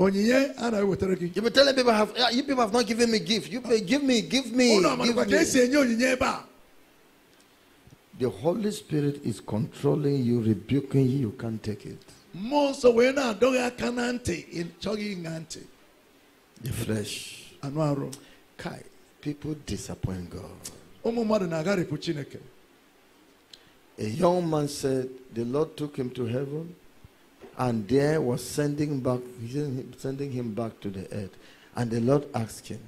You be telling people have you people have not given me gift. You pay, give me, give me. give me. The Holy Spirit is controlling you, rebuking you, you can't take it. The flesh. Kai, people disappoint God. A young man said, The Lord took him to heaven and there was sending back sending him back to the earth. And the Lord asked him,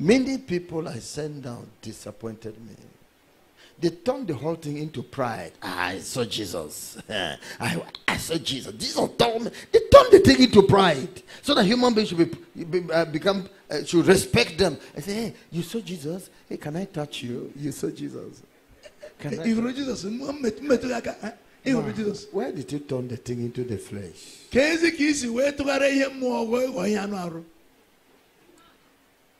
Many people I sent down disappointed me. They turned the whole thing into pride. I saw Jesus. I, I saw Jesus. Jesus told me. They turned the thing into pride so that human beings should be, be uh, become uh, should respect them. I say, hey, you saw Jesus. Hey, can I touch you? You saw Jesus. Can I? Where did you turn the thing into the flesh? ka ezi ka isi wee tụgharịa ihe mmụọ wee ihe anụ arụ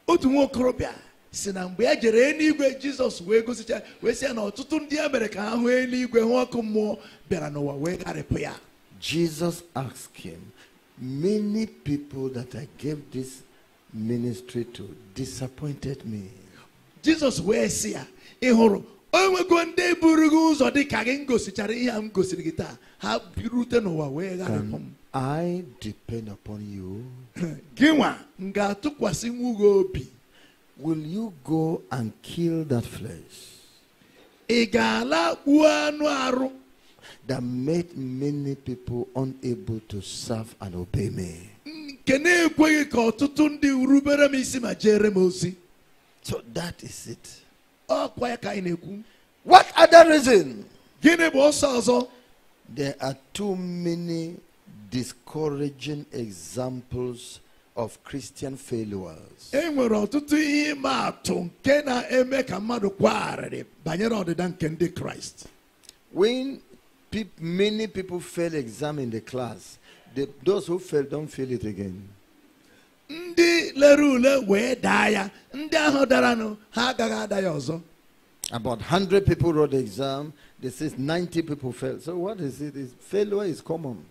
otu nwa okorobịa si na mgbe ya jere eluigwe jizọs wee gosicha wee sị ya na ọtụtụ ndị ya mere ka ha hụ eluigwe hụ ọkụ mmụọ bịara n'ụwa wee gharịpụ ya Jesus asked him, Many people that I gave this ministry to disappointed me. jizọs wee sị ya ị hụrụ onwego ndị buru gị ụzọ dị ka gị ngosichara ihe a m gosiri gị taa ha birute n'ụwa wee gharịpụ m I depend upon you. gị nwa m ga-atụkwasị nwu obi will you go and kill that flesh? ị ga-ala gbuo anụ arụ that made many people unable to serve and obey me. nke na-ekweghị ka ọtụtụ ndị rubere m isi ma jere m ozi so that is it What other reason? There are too many discouraging examples of Christian failures. When pe many people fail exam in the class, the, those who fail don't fail it again ndị lere ule wee daa ya ndị ahụ daranụ ha agaghị ada ya ọzọ About 100 people wrote the exam. They say 90 people failed. So what is it? Is failure is common.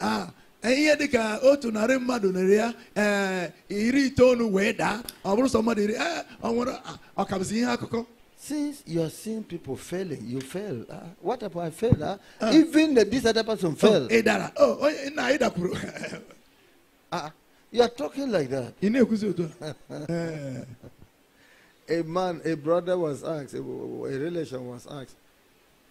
Ah, ihe dị ka otu narị mmadụ nere ya eh, iri itoolu wee daa ọ bụrụ sọ mmadụ iri eh, ọ nwere ah, ọkabụzi ihe akụkọ Since you are seeing people failing, you fail. Uh, what if I fail? Uh? Ah. Uh, Even the, this other person oh, failed. Oh, Idara. Oh, na Ida Kuru. uh, You are talking like that. Eh. a man, a brother was asked, a, relation was asked,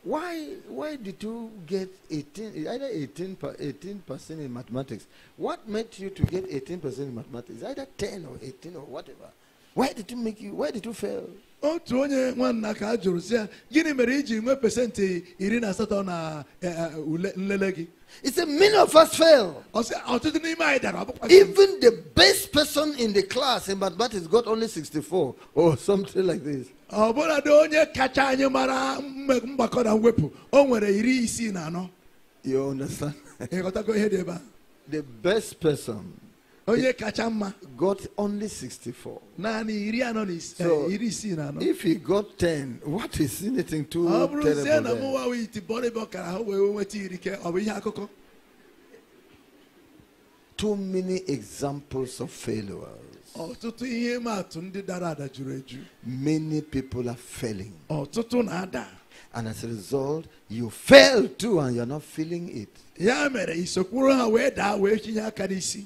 why, why did you get 18, either 18 18% in mathematics? What made you to get 18% in mathematics? Either 10 or 18 or whatever. Why did you make you, why did you fail? otu onye nwanna ka a jụrụ si ya gịnị mere iji nwee pesentị iri na asatọ na eh, eh, nlele gị he said, many of us fail. Even the best person in the class in mathematics got only 64 or something like this. You understand? the best person onye kacha mma got only 64 naanị iri anọ na eh, iri isii na anọ if he got 10 what is anything too terrible ọ bụrụ sie na mụwa wee iti bọrọ ebe ọ kara ha wee nweta iri ke ọ bụ ihe akụkọ too many examples of failures ọtụtụ ihe atụ ndị dara ada juru eju many people are failing ọtụtụ na-ada and as a result you fail too and you're not feeling it ya mere isokwuru ha wee daa wee chinye aka n'isi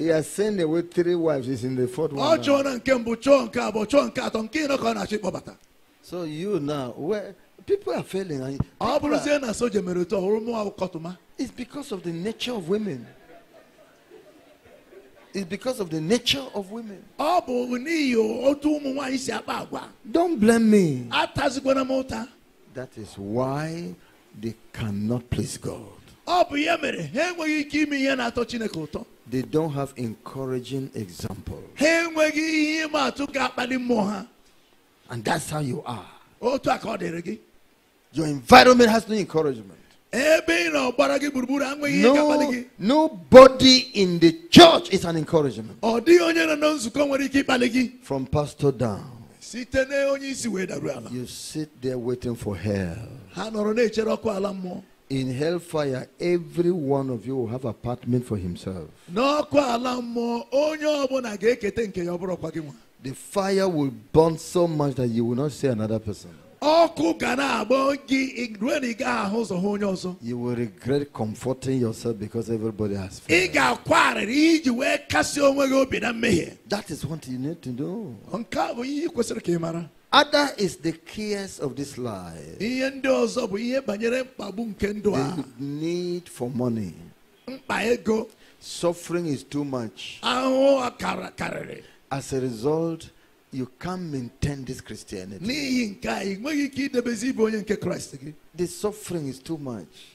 He has sent away three wives. He's in the fourth one. So you now, where people are failing. people are, it's because of the nature of women. It's because of the nature of women. Don't blame me. That is why they cannot please God. They don't have encouraging example. And that's how you are. Your environment has no encouragement. No, nobody in the church is an encouragement. From pastor down. You sit there waiting for hell. In hellfire, every one of you will have apartment for himself. The fire will burn so much that you will not see another person. You will regret comforting yourself because everybody has failed. That is what you need to do. Other is the cares of this life. The need for money. Suffering is too much. As a result, you can't maintain this Christianity. The suffering is too much.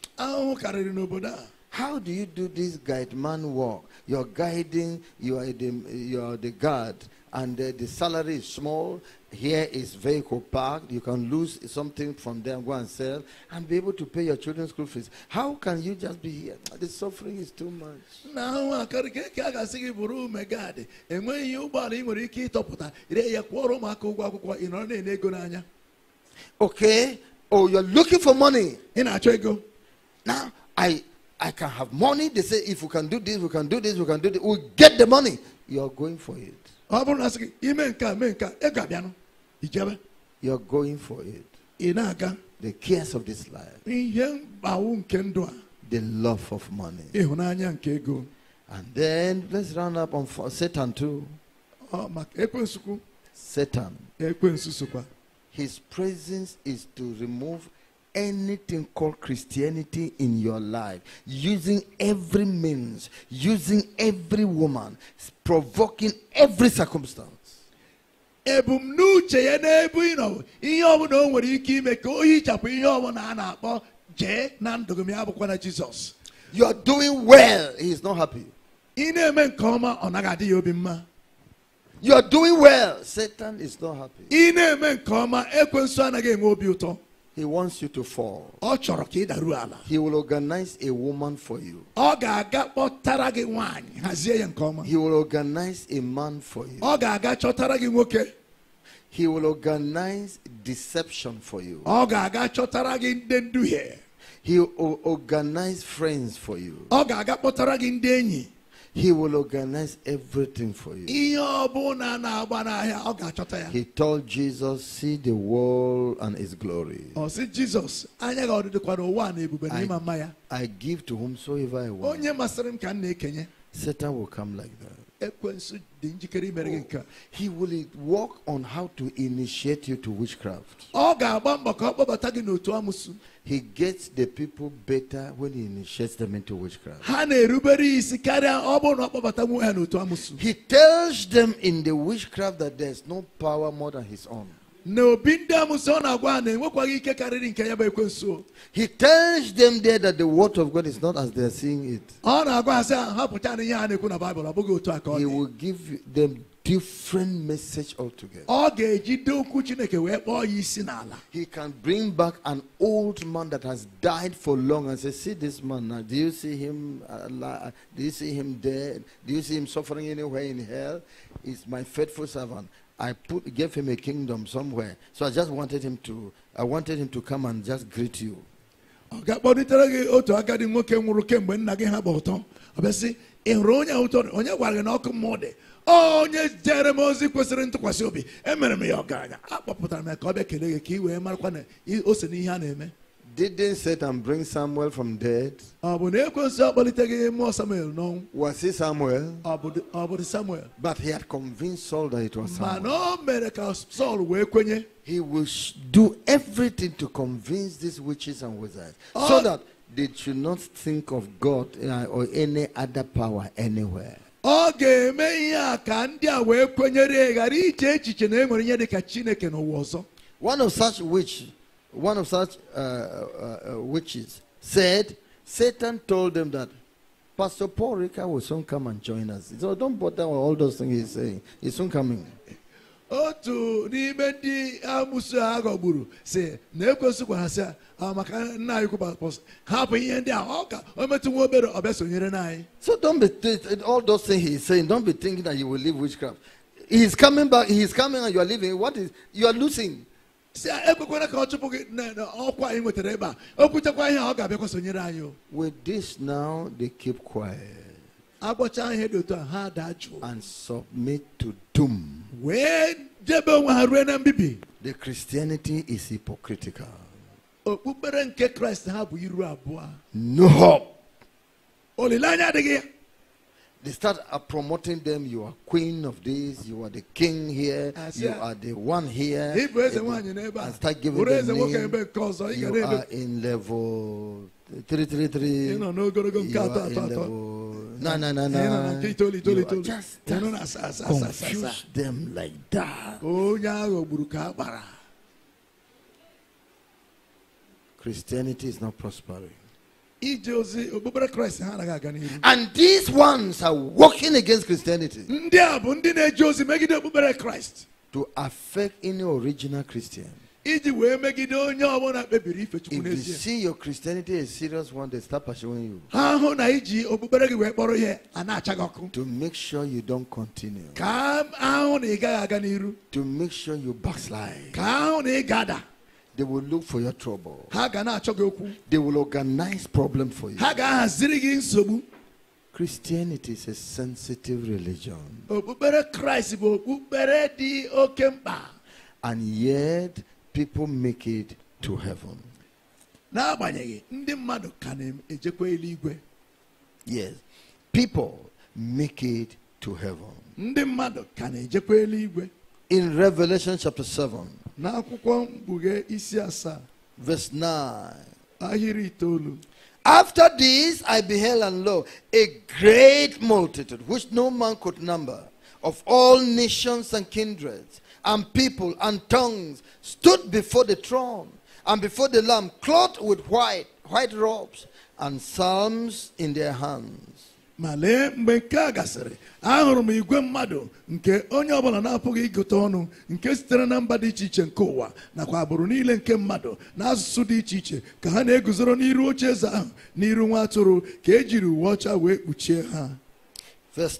How do you do this guide man work? You're guiding, you are the, you are the guard, and uh, the salary is small. Here is vehicle parked. You can lose something from there, and go and sell, and be able to pay your children's school fees. How can you just be here? Ah, the suffering is too much. Now, I can get you are quarrel, Okay. Oh, you're looking for money. In Now, I. I can have money. They say, if we can do this, we can do this, we can do this. we we'll get the money. You're going for it you are going for it the cares of this life the love of money and then let's round up on satan too satan his presence is to remove anything called Christianity in your life, using every means, using every woman, provoking every circumstance. You are doing well, he is not happy. You are doing well, Satan is not happy. He wants you to fall. He will organize a woman for you. He will organize a man for you. He will organize deception for you. He will organize friends for you. He will organize everything for you. He told Jesus, See the world and its glory. I, I give to whomsoever I want. Satan will come like that. He will work on how to initiate you to witchcraft. He gets the people better when he initiates them into witchcraft. He tells them in the witchcraft that there's no power more than his own na obi ndị amụsị ọ na-agwa na enwekwaghị ike karịrị nke ya bụ ekwensu he tells them there that the word of god is not as they are seeing it ọ na-agwa ha na ihe a na-ekwu na baịbụl o bụghị otu a ka ọ he will give them different message altogether. He can bring back an old man that has died for long and say, See this man now. Do you see him Do you see him dead? Do you see him suffering anywhere in hell? He's my faithful servant. I put, gave him a kingdom somewhere. So I just wanted him to, I wanted him to come and just greet you. ọ ga gị otu agadi nwoke nwụrụ kemgbe nna gị ha bụ ụtọ ọ bịa sị ị hụrụ onye ụtọ onye gwara gị na ọkụ mmụọ dị onye jere m ozi kwesịrị ntụkwasị obi emere m ya ọgaranya akpọpụtara m ya ka ọ bịa kelee gị ka ị wee marakwa na ose n'ihe a na-eme Didn't Satan bring Samuel from dead? Was he Samuel? But he had convinced Saul that it was Samuel. He will do everything to convince these witches and wizards so ah. that they should not think of God uh, or any other power anywhere. ọ ga-eme ihe a ka ndị a wee kwenyere ghara iche echiche na e ihe dị ka Chineke n'ụwa ọzọ. One of such witches one of such uh, uh, uh, witches said, Satan told them that Pastor Paul Rica will soon come and join us. So don't bother with all those things he's saying. He's soon coming. otu n'ime ndị amusu a ghọgburu ah, si na ekwesu gwara sị maka nna anyị kwụpapọs hapụ ihe ndị a ọ ka o metụ nwa obere ọ sonyere so don't be all those things he's saying don't be thinking that you will leave witchcraft he's coming back he's coming and you are leaving what is you are losing si eh, ekwekwara ka ọ chụpụ gị n'ọkwa anyị nwetara ebe a o kwuchekwa ihe ọ ga-abịakwa sonyere anyị with this now they keep quiet agwọchaa ihe dị otu a ha daa jụụ and submit to doom wee jebe onwe ha ruo na mbibi the christianity is hypocritical okpukpere nke kraịst ha bụ iru abụọ no hope olileanya adịghị they start uh, promoting them. You are queen of this. You are the king here. You are the one here. And start giving them name. You are in level three, three, three. You are in level. No, no, no, no. You just, just confuse them like that. Christianity is not prospering. And these ones are working against Christianity to affect any original Christian. If you see your Christianity a serious one, they start pursuing you. To make sure you don't continue. To make sure you backslide. They will look for your trouble. They will organize problem for you. Christianity is a sensitive religion. And yet people make it to heaven. Yes. People make it to heaven. In Revelation chapter 7. Verse 9. After this I beheld and lo, a great multitude, which no man could number, of all nations and kindreds, and people and tongues, stood before the throne and before the Lamb, clothed with white, white robes, and psalms in their hands. ma lee mgbe nke a gasịrị ahụrụ m igwe mmadụ nke onye ọbụla na-apụghị ịgụta ọnụ nke sitere na mba dị iche iche nke ụwa nakwa agbụrụ niile nke mmadụ na asụsụ dị iche iche ka ha na-eguzoro n'iru oche eze ahụ n'iru nwa atụrụ ka ejiri uwe ọcha wee kpuchie ha verse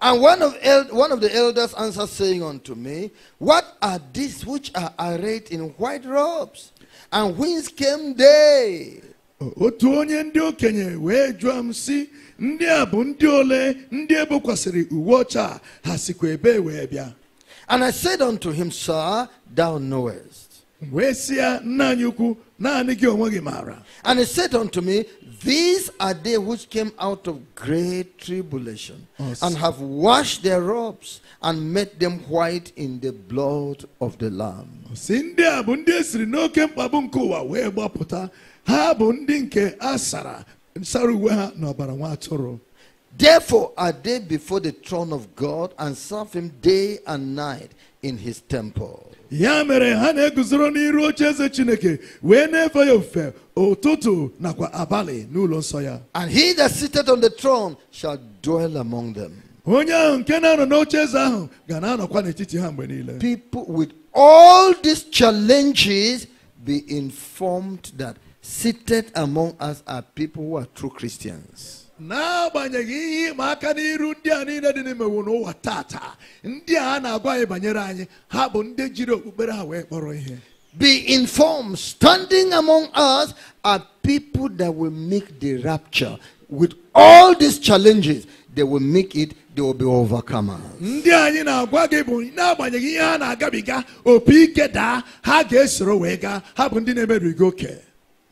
And one of, el- one of the elders answered, saying unto me, What are these which are arrayed in white robes? And whence came they? otu onye ndị okenye wee jụọ m sị ndị a bụ ndị ole ndị ebokwasịrị uwe ọcha ha sikwa ebe wee bịa and i said unto him sir thou knowest wee sị ya nna anyị ukwu naanị gị onwe gị maara and he said unto me these are they which came out of great tribulation and have washed their robes and made them white in the blood of the lamb ha bụ ndị nke a sara sara uwe ha n'ọbara nwa atụrụ Therefore are they before the throne of God and serve him day and night in his temple. Ya mere ha na-eguzoro n'iru oche eze Chineke wee na-efe ya ofufe ụtụtụ nakwa abalị n'ụlọ nsọ ya. And he that sitteth on the throne shall dwell among them. Onye ahụ nke na-anọ n'oche eze ahụ ga na-anọkwa n'etiti ha mgbe niile. People with all these challenges be informed that Seated among us are people who are true Christians. n'agbanyeghị ihe ịma aka n'iru ndị a niile dị n'imewu n'ụwa ndị a na-agwa anyị banyere anyị ha bụ ndị jiri okpukpere ha wee kpọrọ ihe Be informed, standing among us are people that will make the rapture. With all these challenges, they will make it, they will be overcomers. Ndị anyị na-agwa gị bụ n'agbanyeghị ihe na-agabiga opi ike daa ha ga-esoro wee gaa ha bụ ndị na-emerigo oke.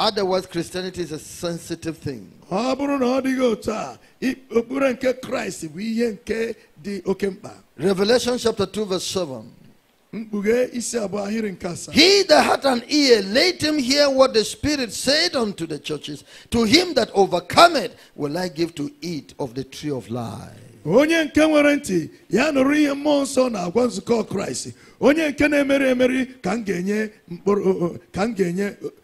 Otherwise, Christianity is a sensitive thing. revelation chapter 2 verse 7 he that hath an ear let him hear what the spirit said unto the churches to him that overcometh will i give to eat of the tree of life onye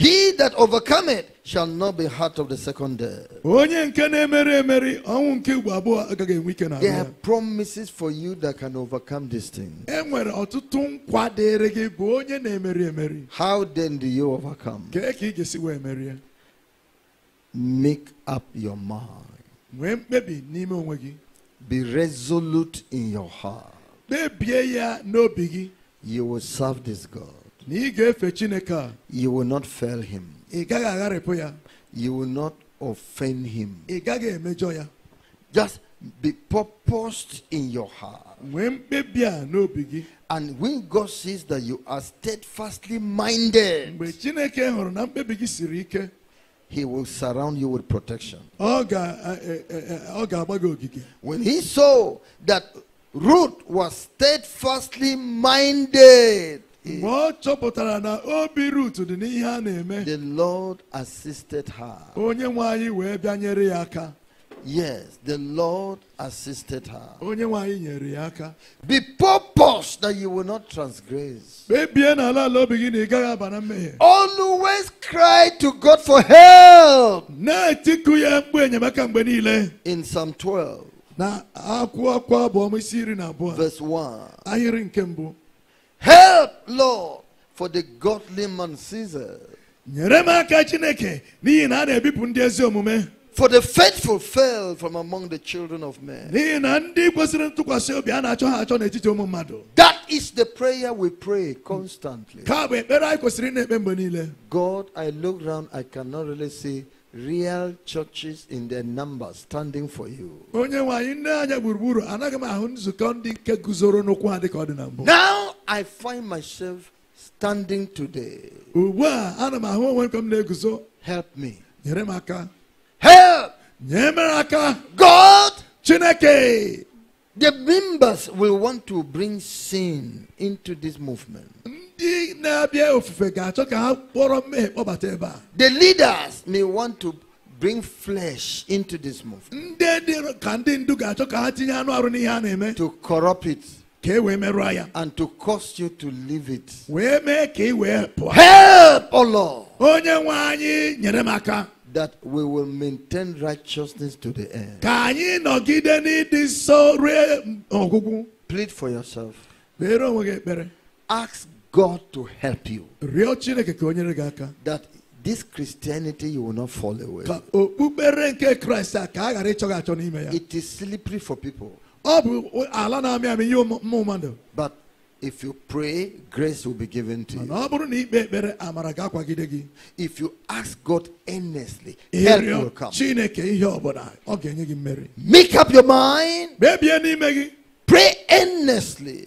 He that overcometh shall not be hurt of the second death. There are promises for you that can overcome this thing. How then do you overcome? Make up your mind. Be resolute in your heart. You will serve this God. You will not fail him. You will not offend him. Just be purposed in your heart. And when God sees that you are steadfastly minded, He will surround you with protection. When He saw that Ruth was steadfastly minded the Lord assisted her. Yes, the Lord assisted her. Be purpose that you will not transgress. Always cry to God for help. In Psalm 12, verse 1. Help, Lord, for the godly man Caesar. For the faithful fell from among the children of men. That is the prayer we pray constantly. God, I look around, I cannot really see real churches in their numbers standing for you. Now I find myself standing today. Help me. Help! God! The members will want to bring sin into this movement. The leaders may want to bring flesh into this movement to corrupt it and to cause you to leave it. Help, O oh Lord, that we will maintain righteousness to the end. Plead for yourself. Ask God to help you. That this Christianity you will not fall away. It is slippery for people. But if you pray, grace will be given to you. If you ask God earnestly, help will come. Make up your mind. Pray earnestly.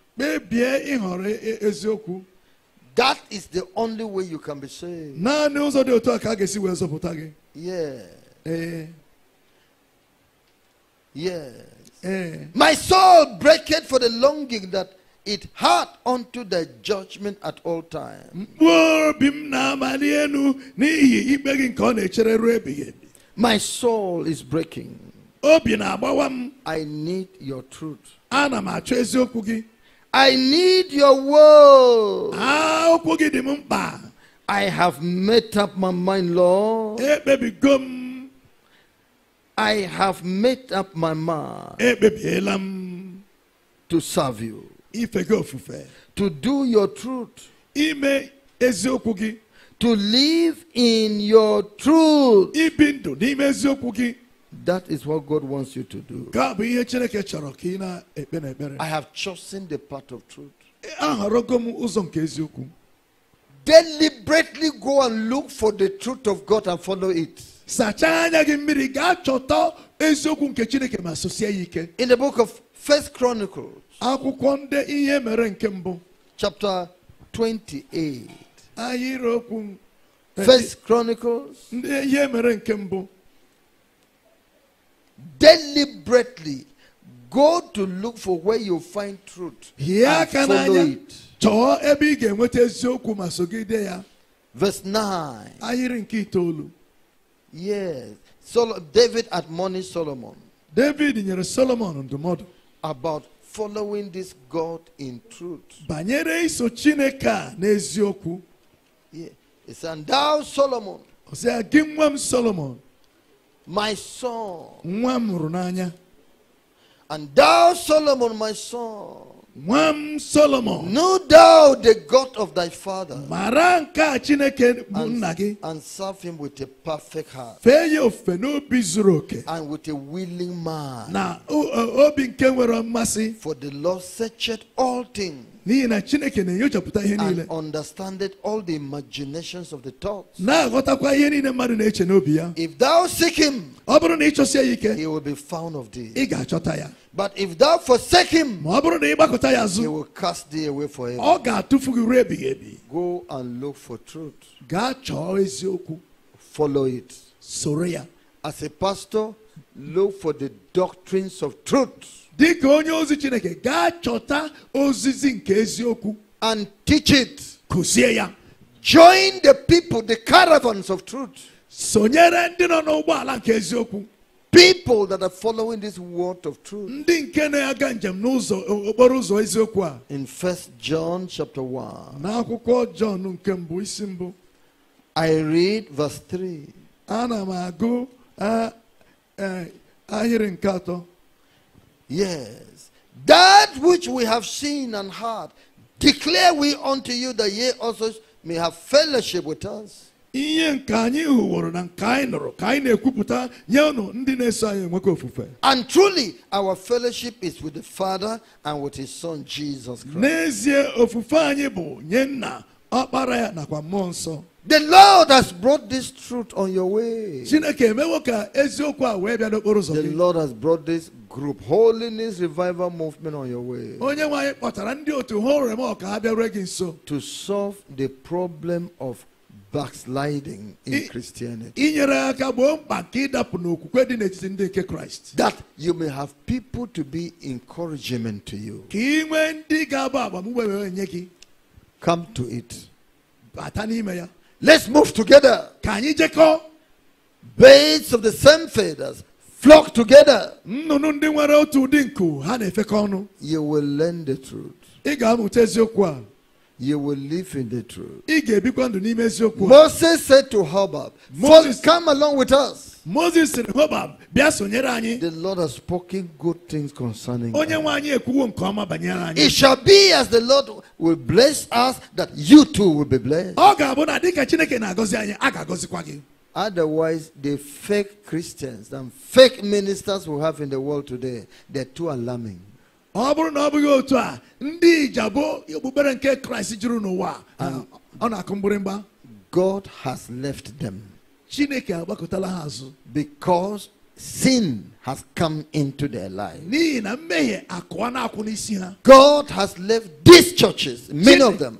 That is the only way you can be saved. Yeah. yeah. My soul breaketh for the longing that it had unto the judgment at all times. My soul is breaking. I need your truth. I need your word. Ah, I have made up my mind, Lord. Eh, I have made up my mind. Eh, to serve you. To do your truth. To live in your truth. That is what God wants you to do. I have chosen the path of truth. Deliberately go and look for the truth of God and follow it. In the book of First Chronicles, chapter 28. First Chronicles deliberately go to look for where you find truth and follow it. Verse 9. Yes. So David admonished Solomon. David nyere Solomon ndụmọdụ. About following this God in truth. Banyere iso Chineke a n'eziokwu. Yes. And thou Solomon. Ọ sị, gị Solomon my son. Nwa And thou, Solomon, my son. Nwa m Solomon. Know thou the God of thy father. Maranka Chineke bụ And serve him with a perfect heart. Fee ya ofufe And with a willing mind. Na obi nke nwere mmasị. For the Lord searcheth all things and understandeth all the imaginations of the thoughts. If thou seek him, he will be found of thee. But if thou forsake him, he will cast thee away forever. Go and look for truth. Follow it. As a pastor, look for the doctrines of truth dịka onye ozi chineke gaa chọta ozizi nke eziokwu and teach it kụzie ya join the people the caravans of truth sonyere ndị nọ n'ụgbọala nke eziokwu people that are following this word of truth ndị nke na-aga njem n'ụzọ okporo ụzọ eziokwu a in first john chapter 1 n'akwụkwọ john nke mbụ isi mbụ i read verse 3 ana m agụ ahịrị nke atọ Yes. That which we have seen and heard, declare we unto you that ye also may have fellowship with us. and truly our fellowship is with the father and with his son jesus Christ. the lord has brought this truth on your way the lord has brought this group, Holiness Revival Movement, on your way. To solve the problem of backsliding in I- Christianity. That you may have people to be encouragement to you. Come to it. Let's move together. you take all Birds of the same feathers flock together. Nnụnụ ndị nwere otu ụdị nku ha na-efekọ ọnụ. You will learn the truth. Ị ga-amụta eziokwu a. You will live in the truth. Ị ga-ebikwa ndụ n'ime eziokwu. a. Moses said to Hobab, Moses, come along with us. Moses sịrị Hobab, bịa sonyere anyi. The Lord has spoken good things concerning us. Onye nwe anyi ekwuwo nke ọma banyere anyị. It shall be as the Lord will bless us that you too will be blessed. Ọ ga-abụ na dịka Chineke na-agọzi anyị, a ga-agọzikwa gị. Otherwise, the fake Christians and fake ministers we have in the world today, they're too alarming. ọ ndị god has left them chineke because sin has come into their life na na god has left these churches many of them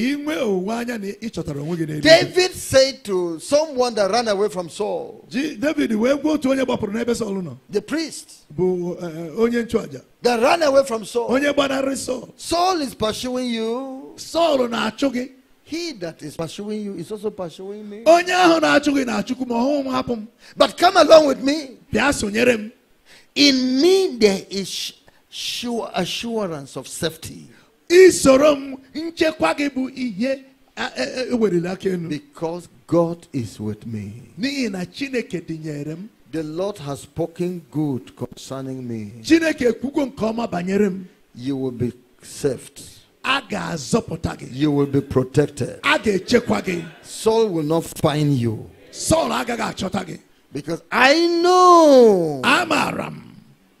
David said to someone that ran away from Saul, the priest that ran away from Saul, Saul is pursuing you. Saul he that is pursuing you is also pursuing me. But come along with me. In me there is sure assurance of safety isoro m nchekwa gị bụ ihe ewerela aka enu because God is with me n'ihi na Chineke dịnyere m the Lord has spoken good concerning me Chineke ekwugo nke ọma banyere m you will be saved a ga-azọpụta gị you will be protected a ga-echekwa gị Saul will not find you Saul agaghị achọta gị because I know amaram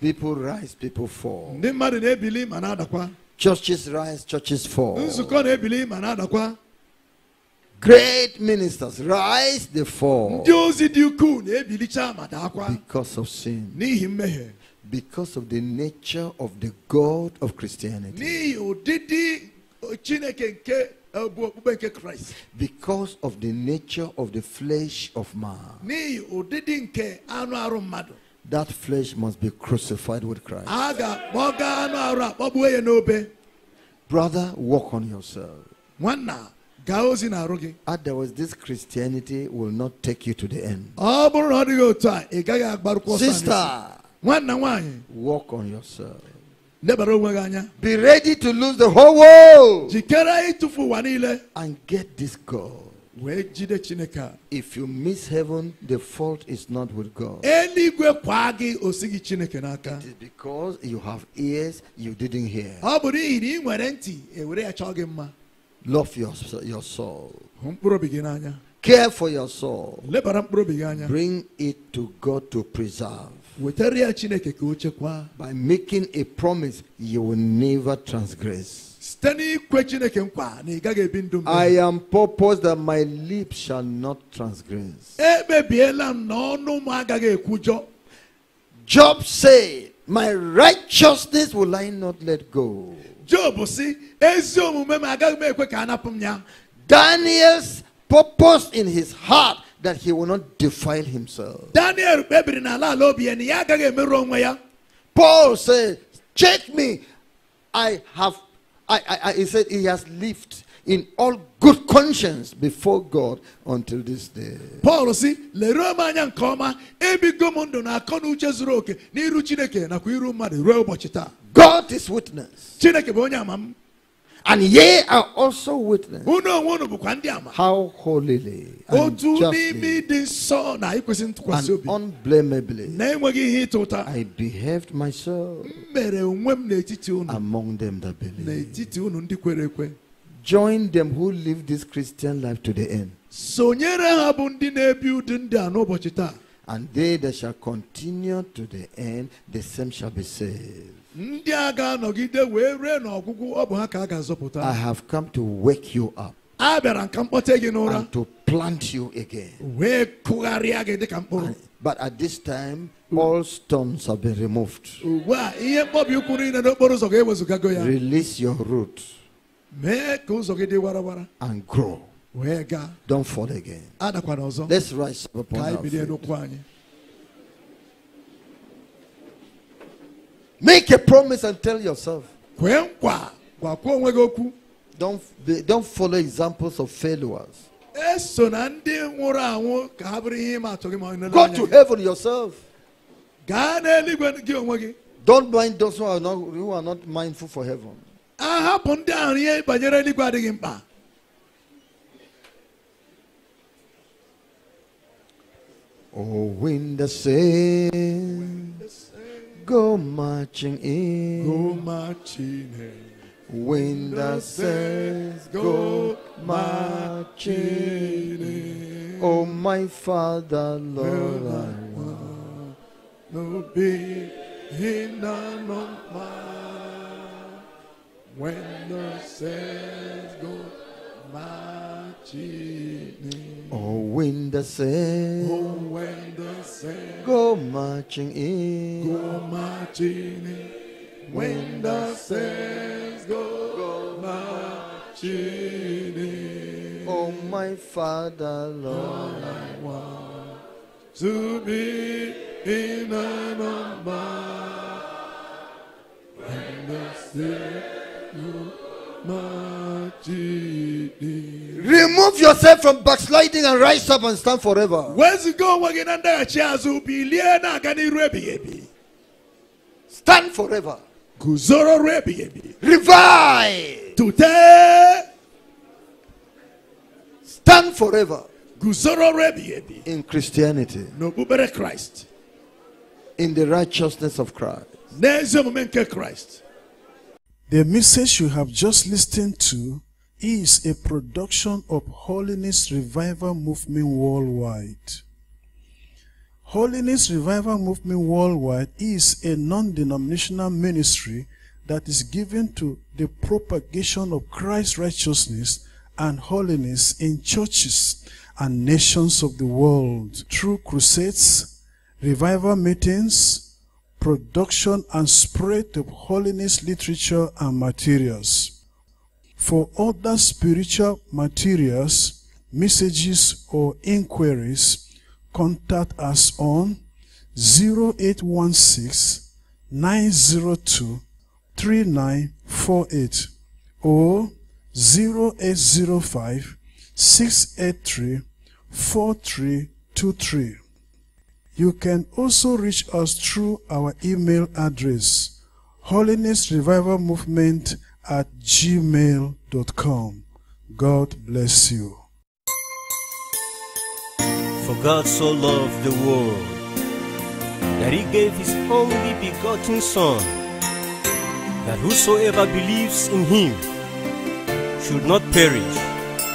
People rise, people fall. Churches rise, churches fall. Great ministers rise, they fall. Because of sin. Because of the nature of the God of Christianity. Because of the nature of the flesh of man. That flesh must be crucified with Christ. Brother, walk on yourself. Otherwise, this Christianity will not take you to the end. Sister, walk on yourself. Be ready to lose the whole world and get this God. If you miss heaven, the fault is not with God. It is because you have ears you didn't hear. Love your, your soul. Care for your soul. Bring it to God to preserve. By making a promise you will never transgress. I am purpose that my lips shall not transgress. Job said, My righteousness will I not let go. Job si, Daniel's purpose in his heart that he will not defile himself. Paul said, Check me. I have I, he said he has lived in all good conscience before God until this day. Paul see lere m anya nke ọma ebigo m ndụ na akọ na uche zuru oke God is witness. Chineke bụ onye ama and ye are also witness how holily and justly and unblameably I behaved myself among them that believe. Join them who live this Christian life to the end. And they that shall continue to the end, the same shall be saved. ndị a ga-anọgide wee rue n'ọgwụgwụ ọ bụ ha ka a ga-azọpụta I have come to wake you up a bịara ka mkpọte gị n'ụra and to plant you again. wee kụgharịa gị dịka mkpụrụ But at this time, all stones have been removed. ugbu a ihe mkpọbi ụkwụ niile n'okporo ụzọ ga gago ya Release your root mee ka ụzọ gị dị warawara and grow. wee gaa Don't fall again. adakwana ọzọ Let's rise up upon our feet. Make a promise and tell yourself. Don't, don't follow examples of failures. Go to heaven yourself. Don't mind those who are not, who are not mindful for heaven. Oh, wind the same go marching in. Go marching in. When the saints go marching in. Oh, my Father, Lord, I want no be in the of When the saints go marching in. Oh, when the sail, oh, when the sail, go marching in, go marching in. When the sands go, go marching in. Oh, my Father, Lord, I want to be in an armor. When the sail go marching in. Remove yourself from backsliding and rise up and stand forever. Stand forever. Revive. Today. Stand forever. In Christianity. Christ. In the righteousness of Christ. The message you have just listened to is a production of Holiness Revival Movement worldwide. Holiness Revival Movement worldwide is a non-denominational ministry that is given to the propagation of Christ's righteousness and holiness in churches and nations of the world through crusades, revival meetings, production and spread of holiness literature and materials. For other spiritual materials, messages, or inquiries, contact us on 0816 902 3948 or 0805 683 4323. You can also reach us through our email address Holiness Revival Movement at gmail.com. God bless you. For God so loved the world that he gave his only begotten Son, that whosoever believes in him should not perish,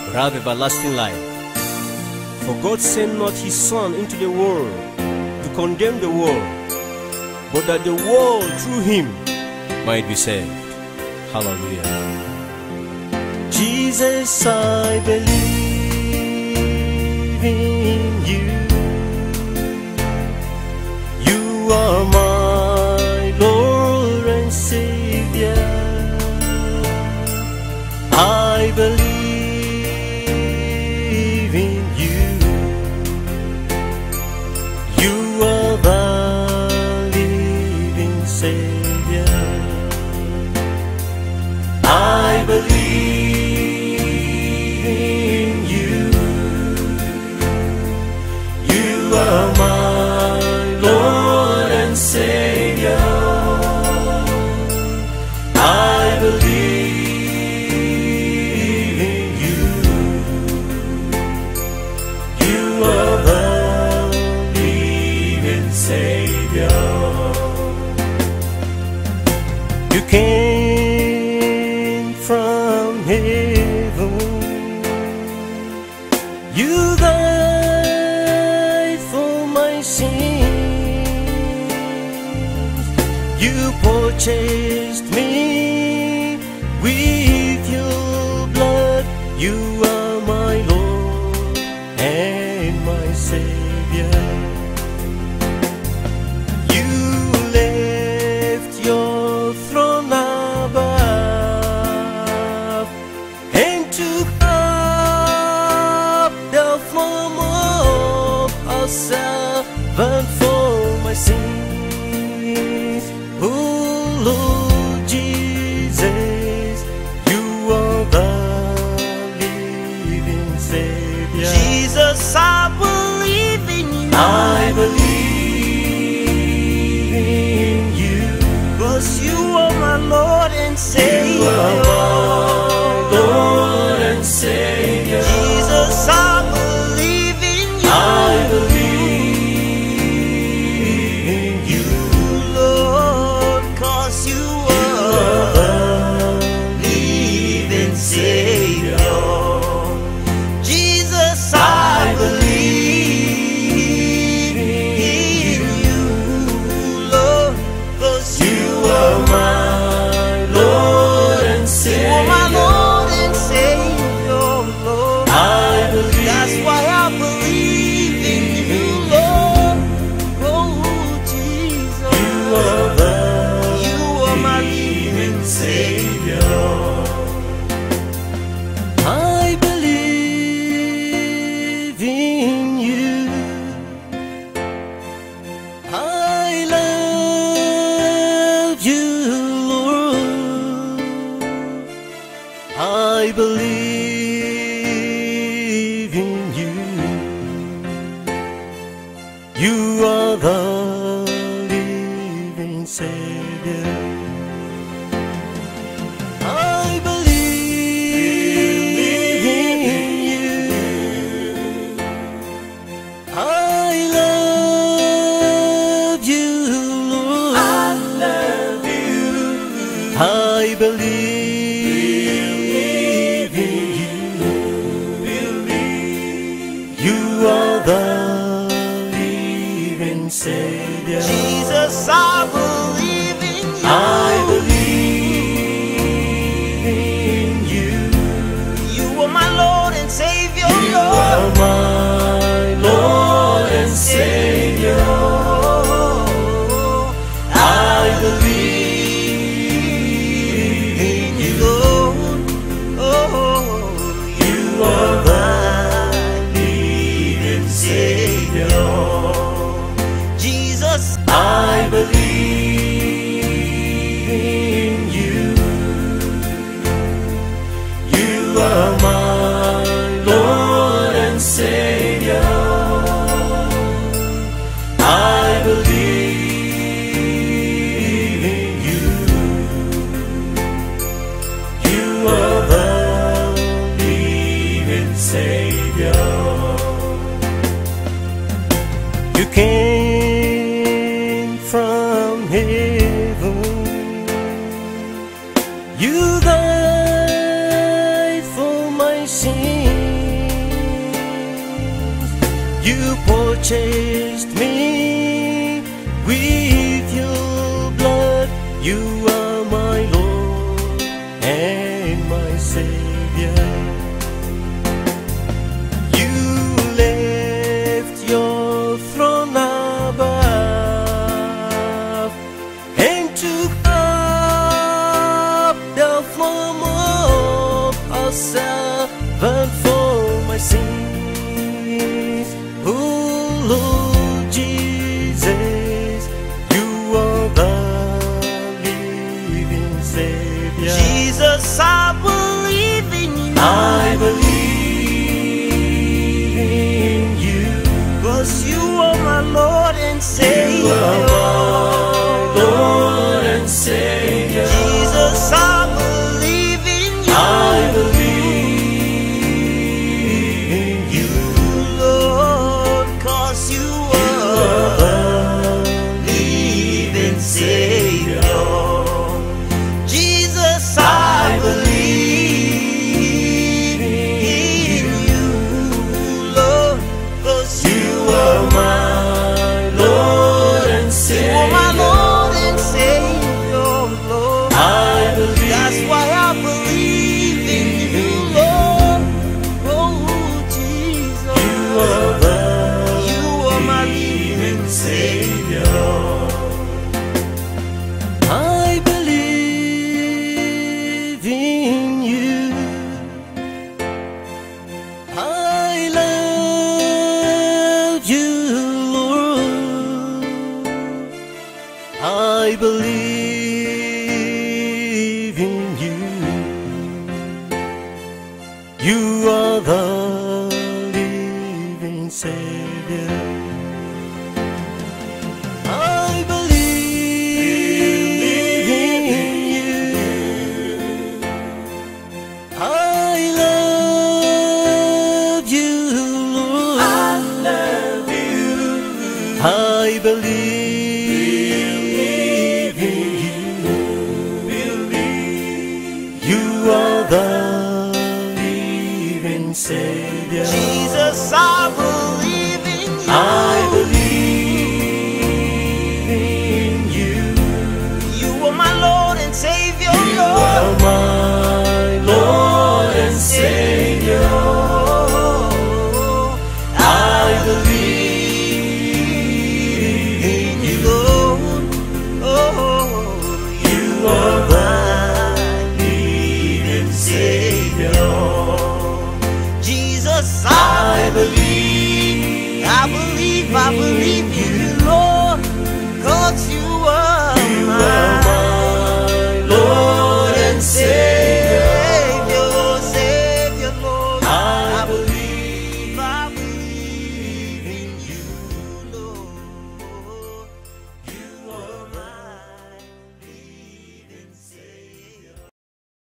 but have everlasting life. For God sent not his Son into the world to condemn the world, but that the world through him might be saved. Hallelujah. Jesus, I believe in you. You are my yourself and for my sins.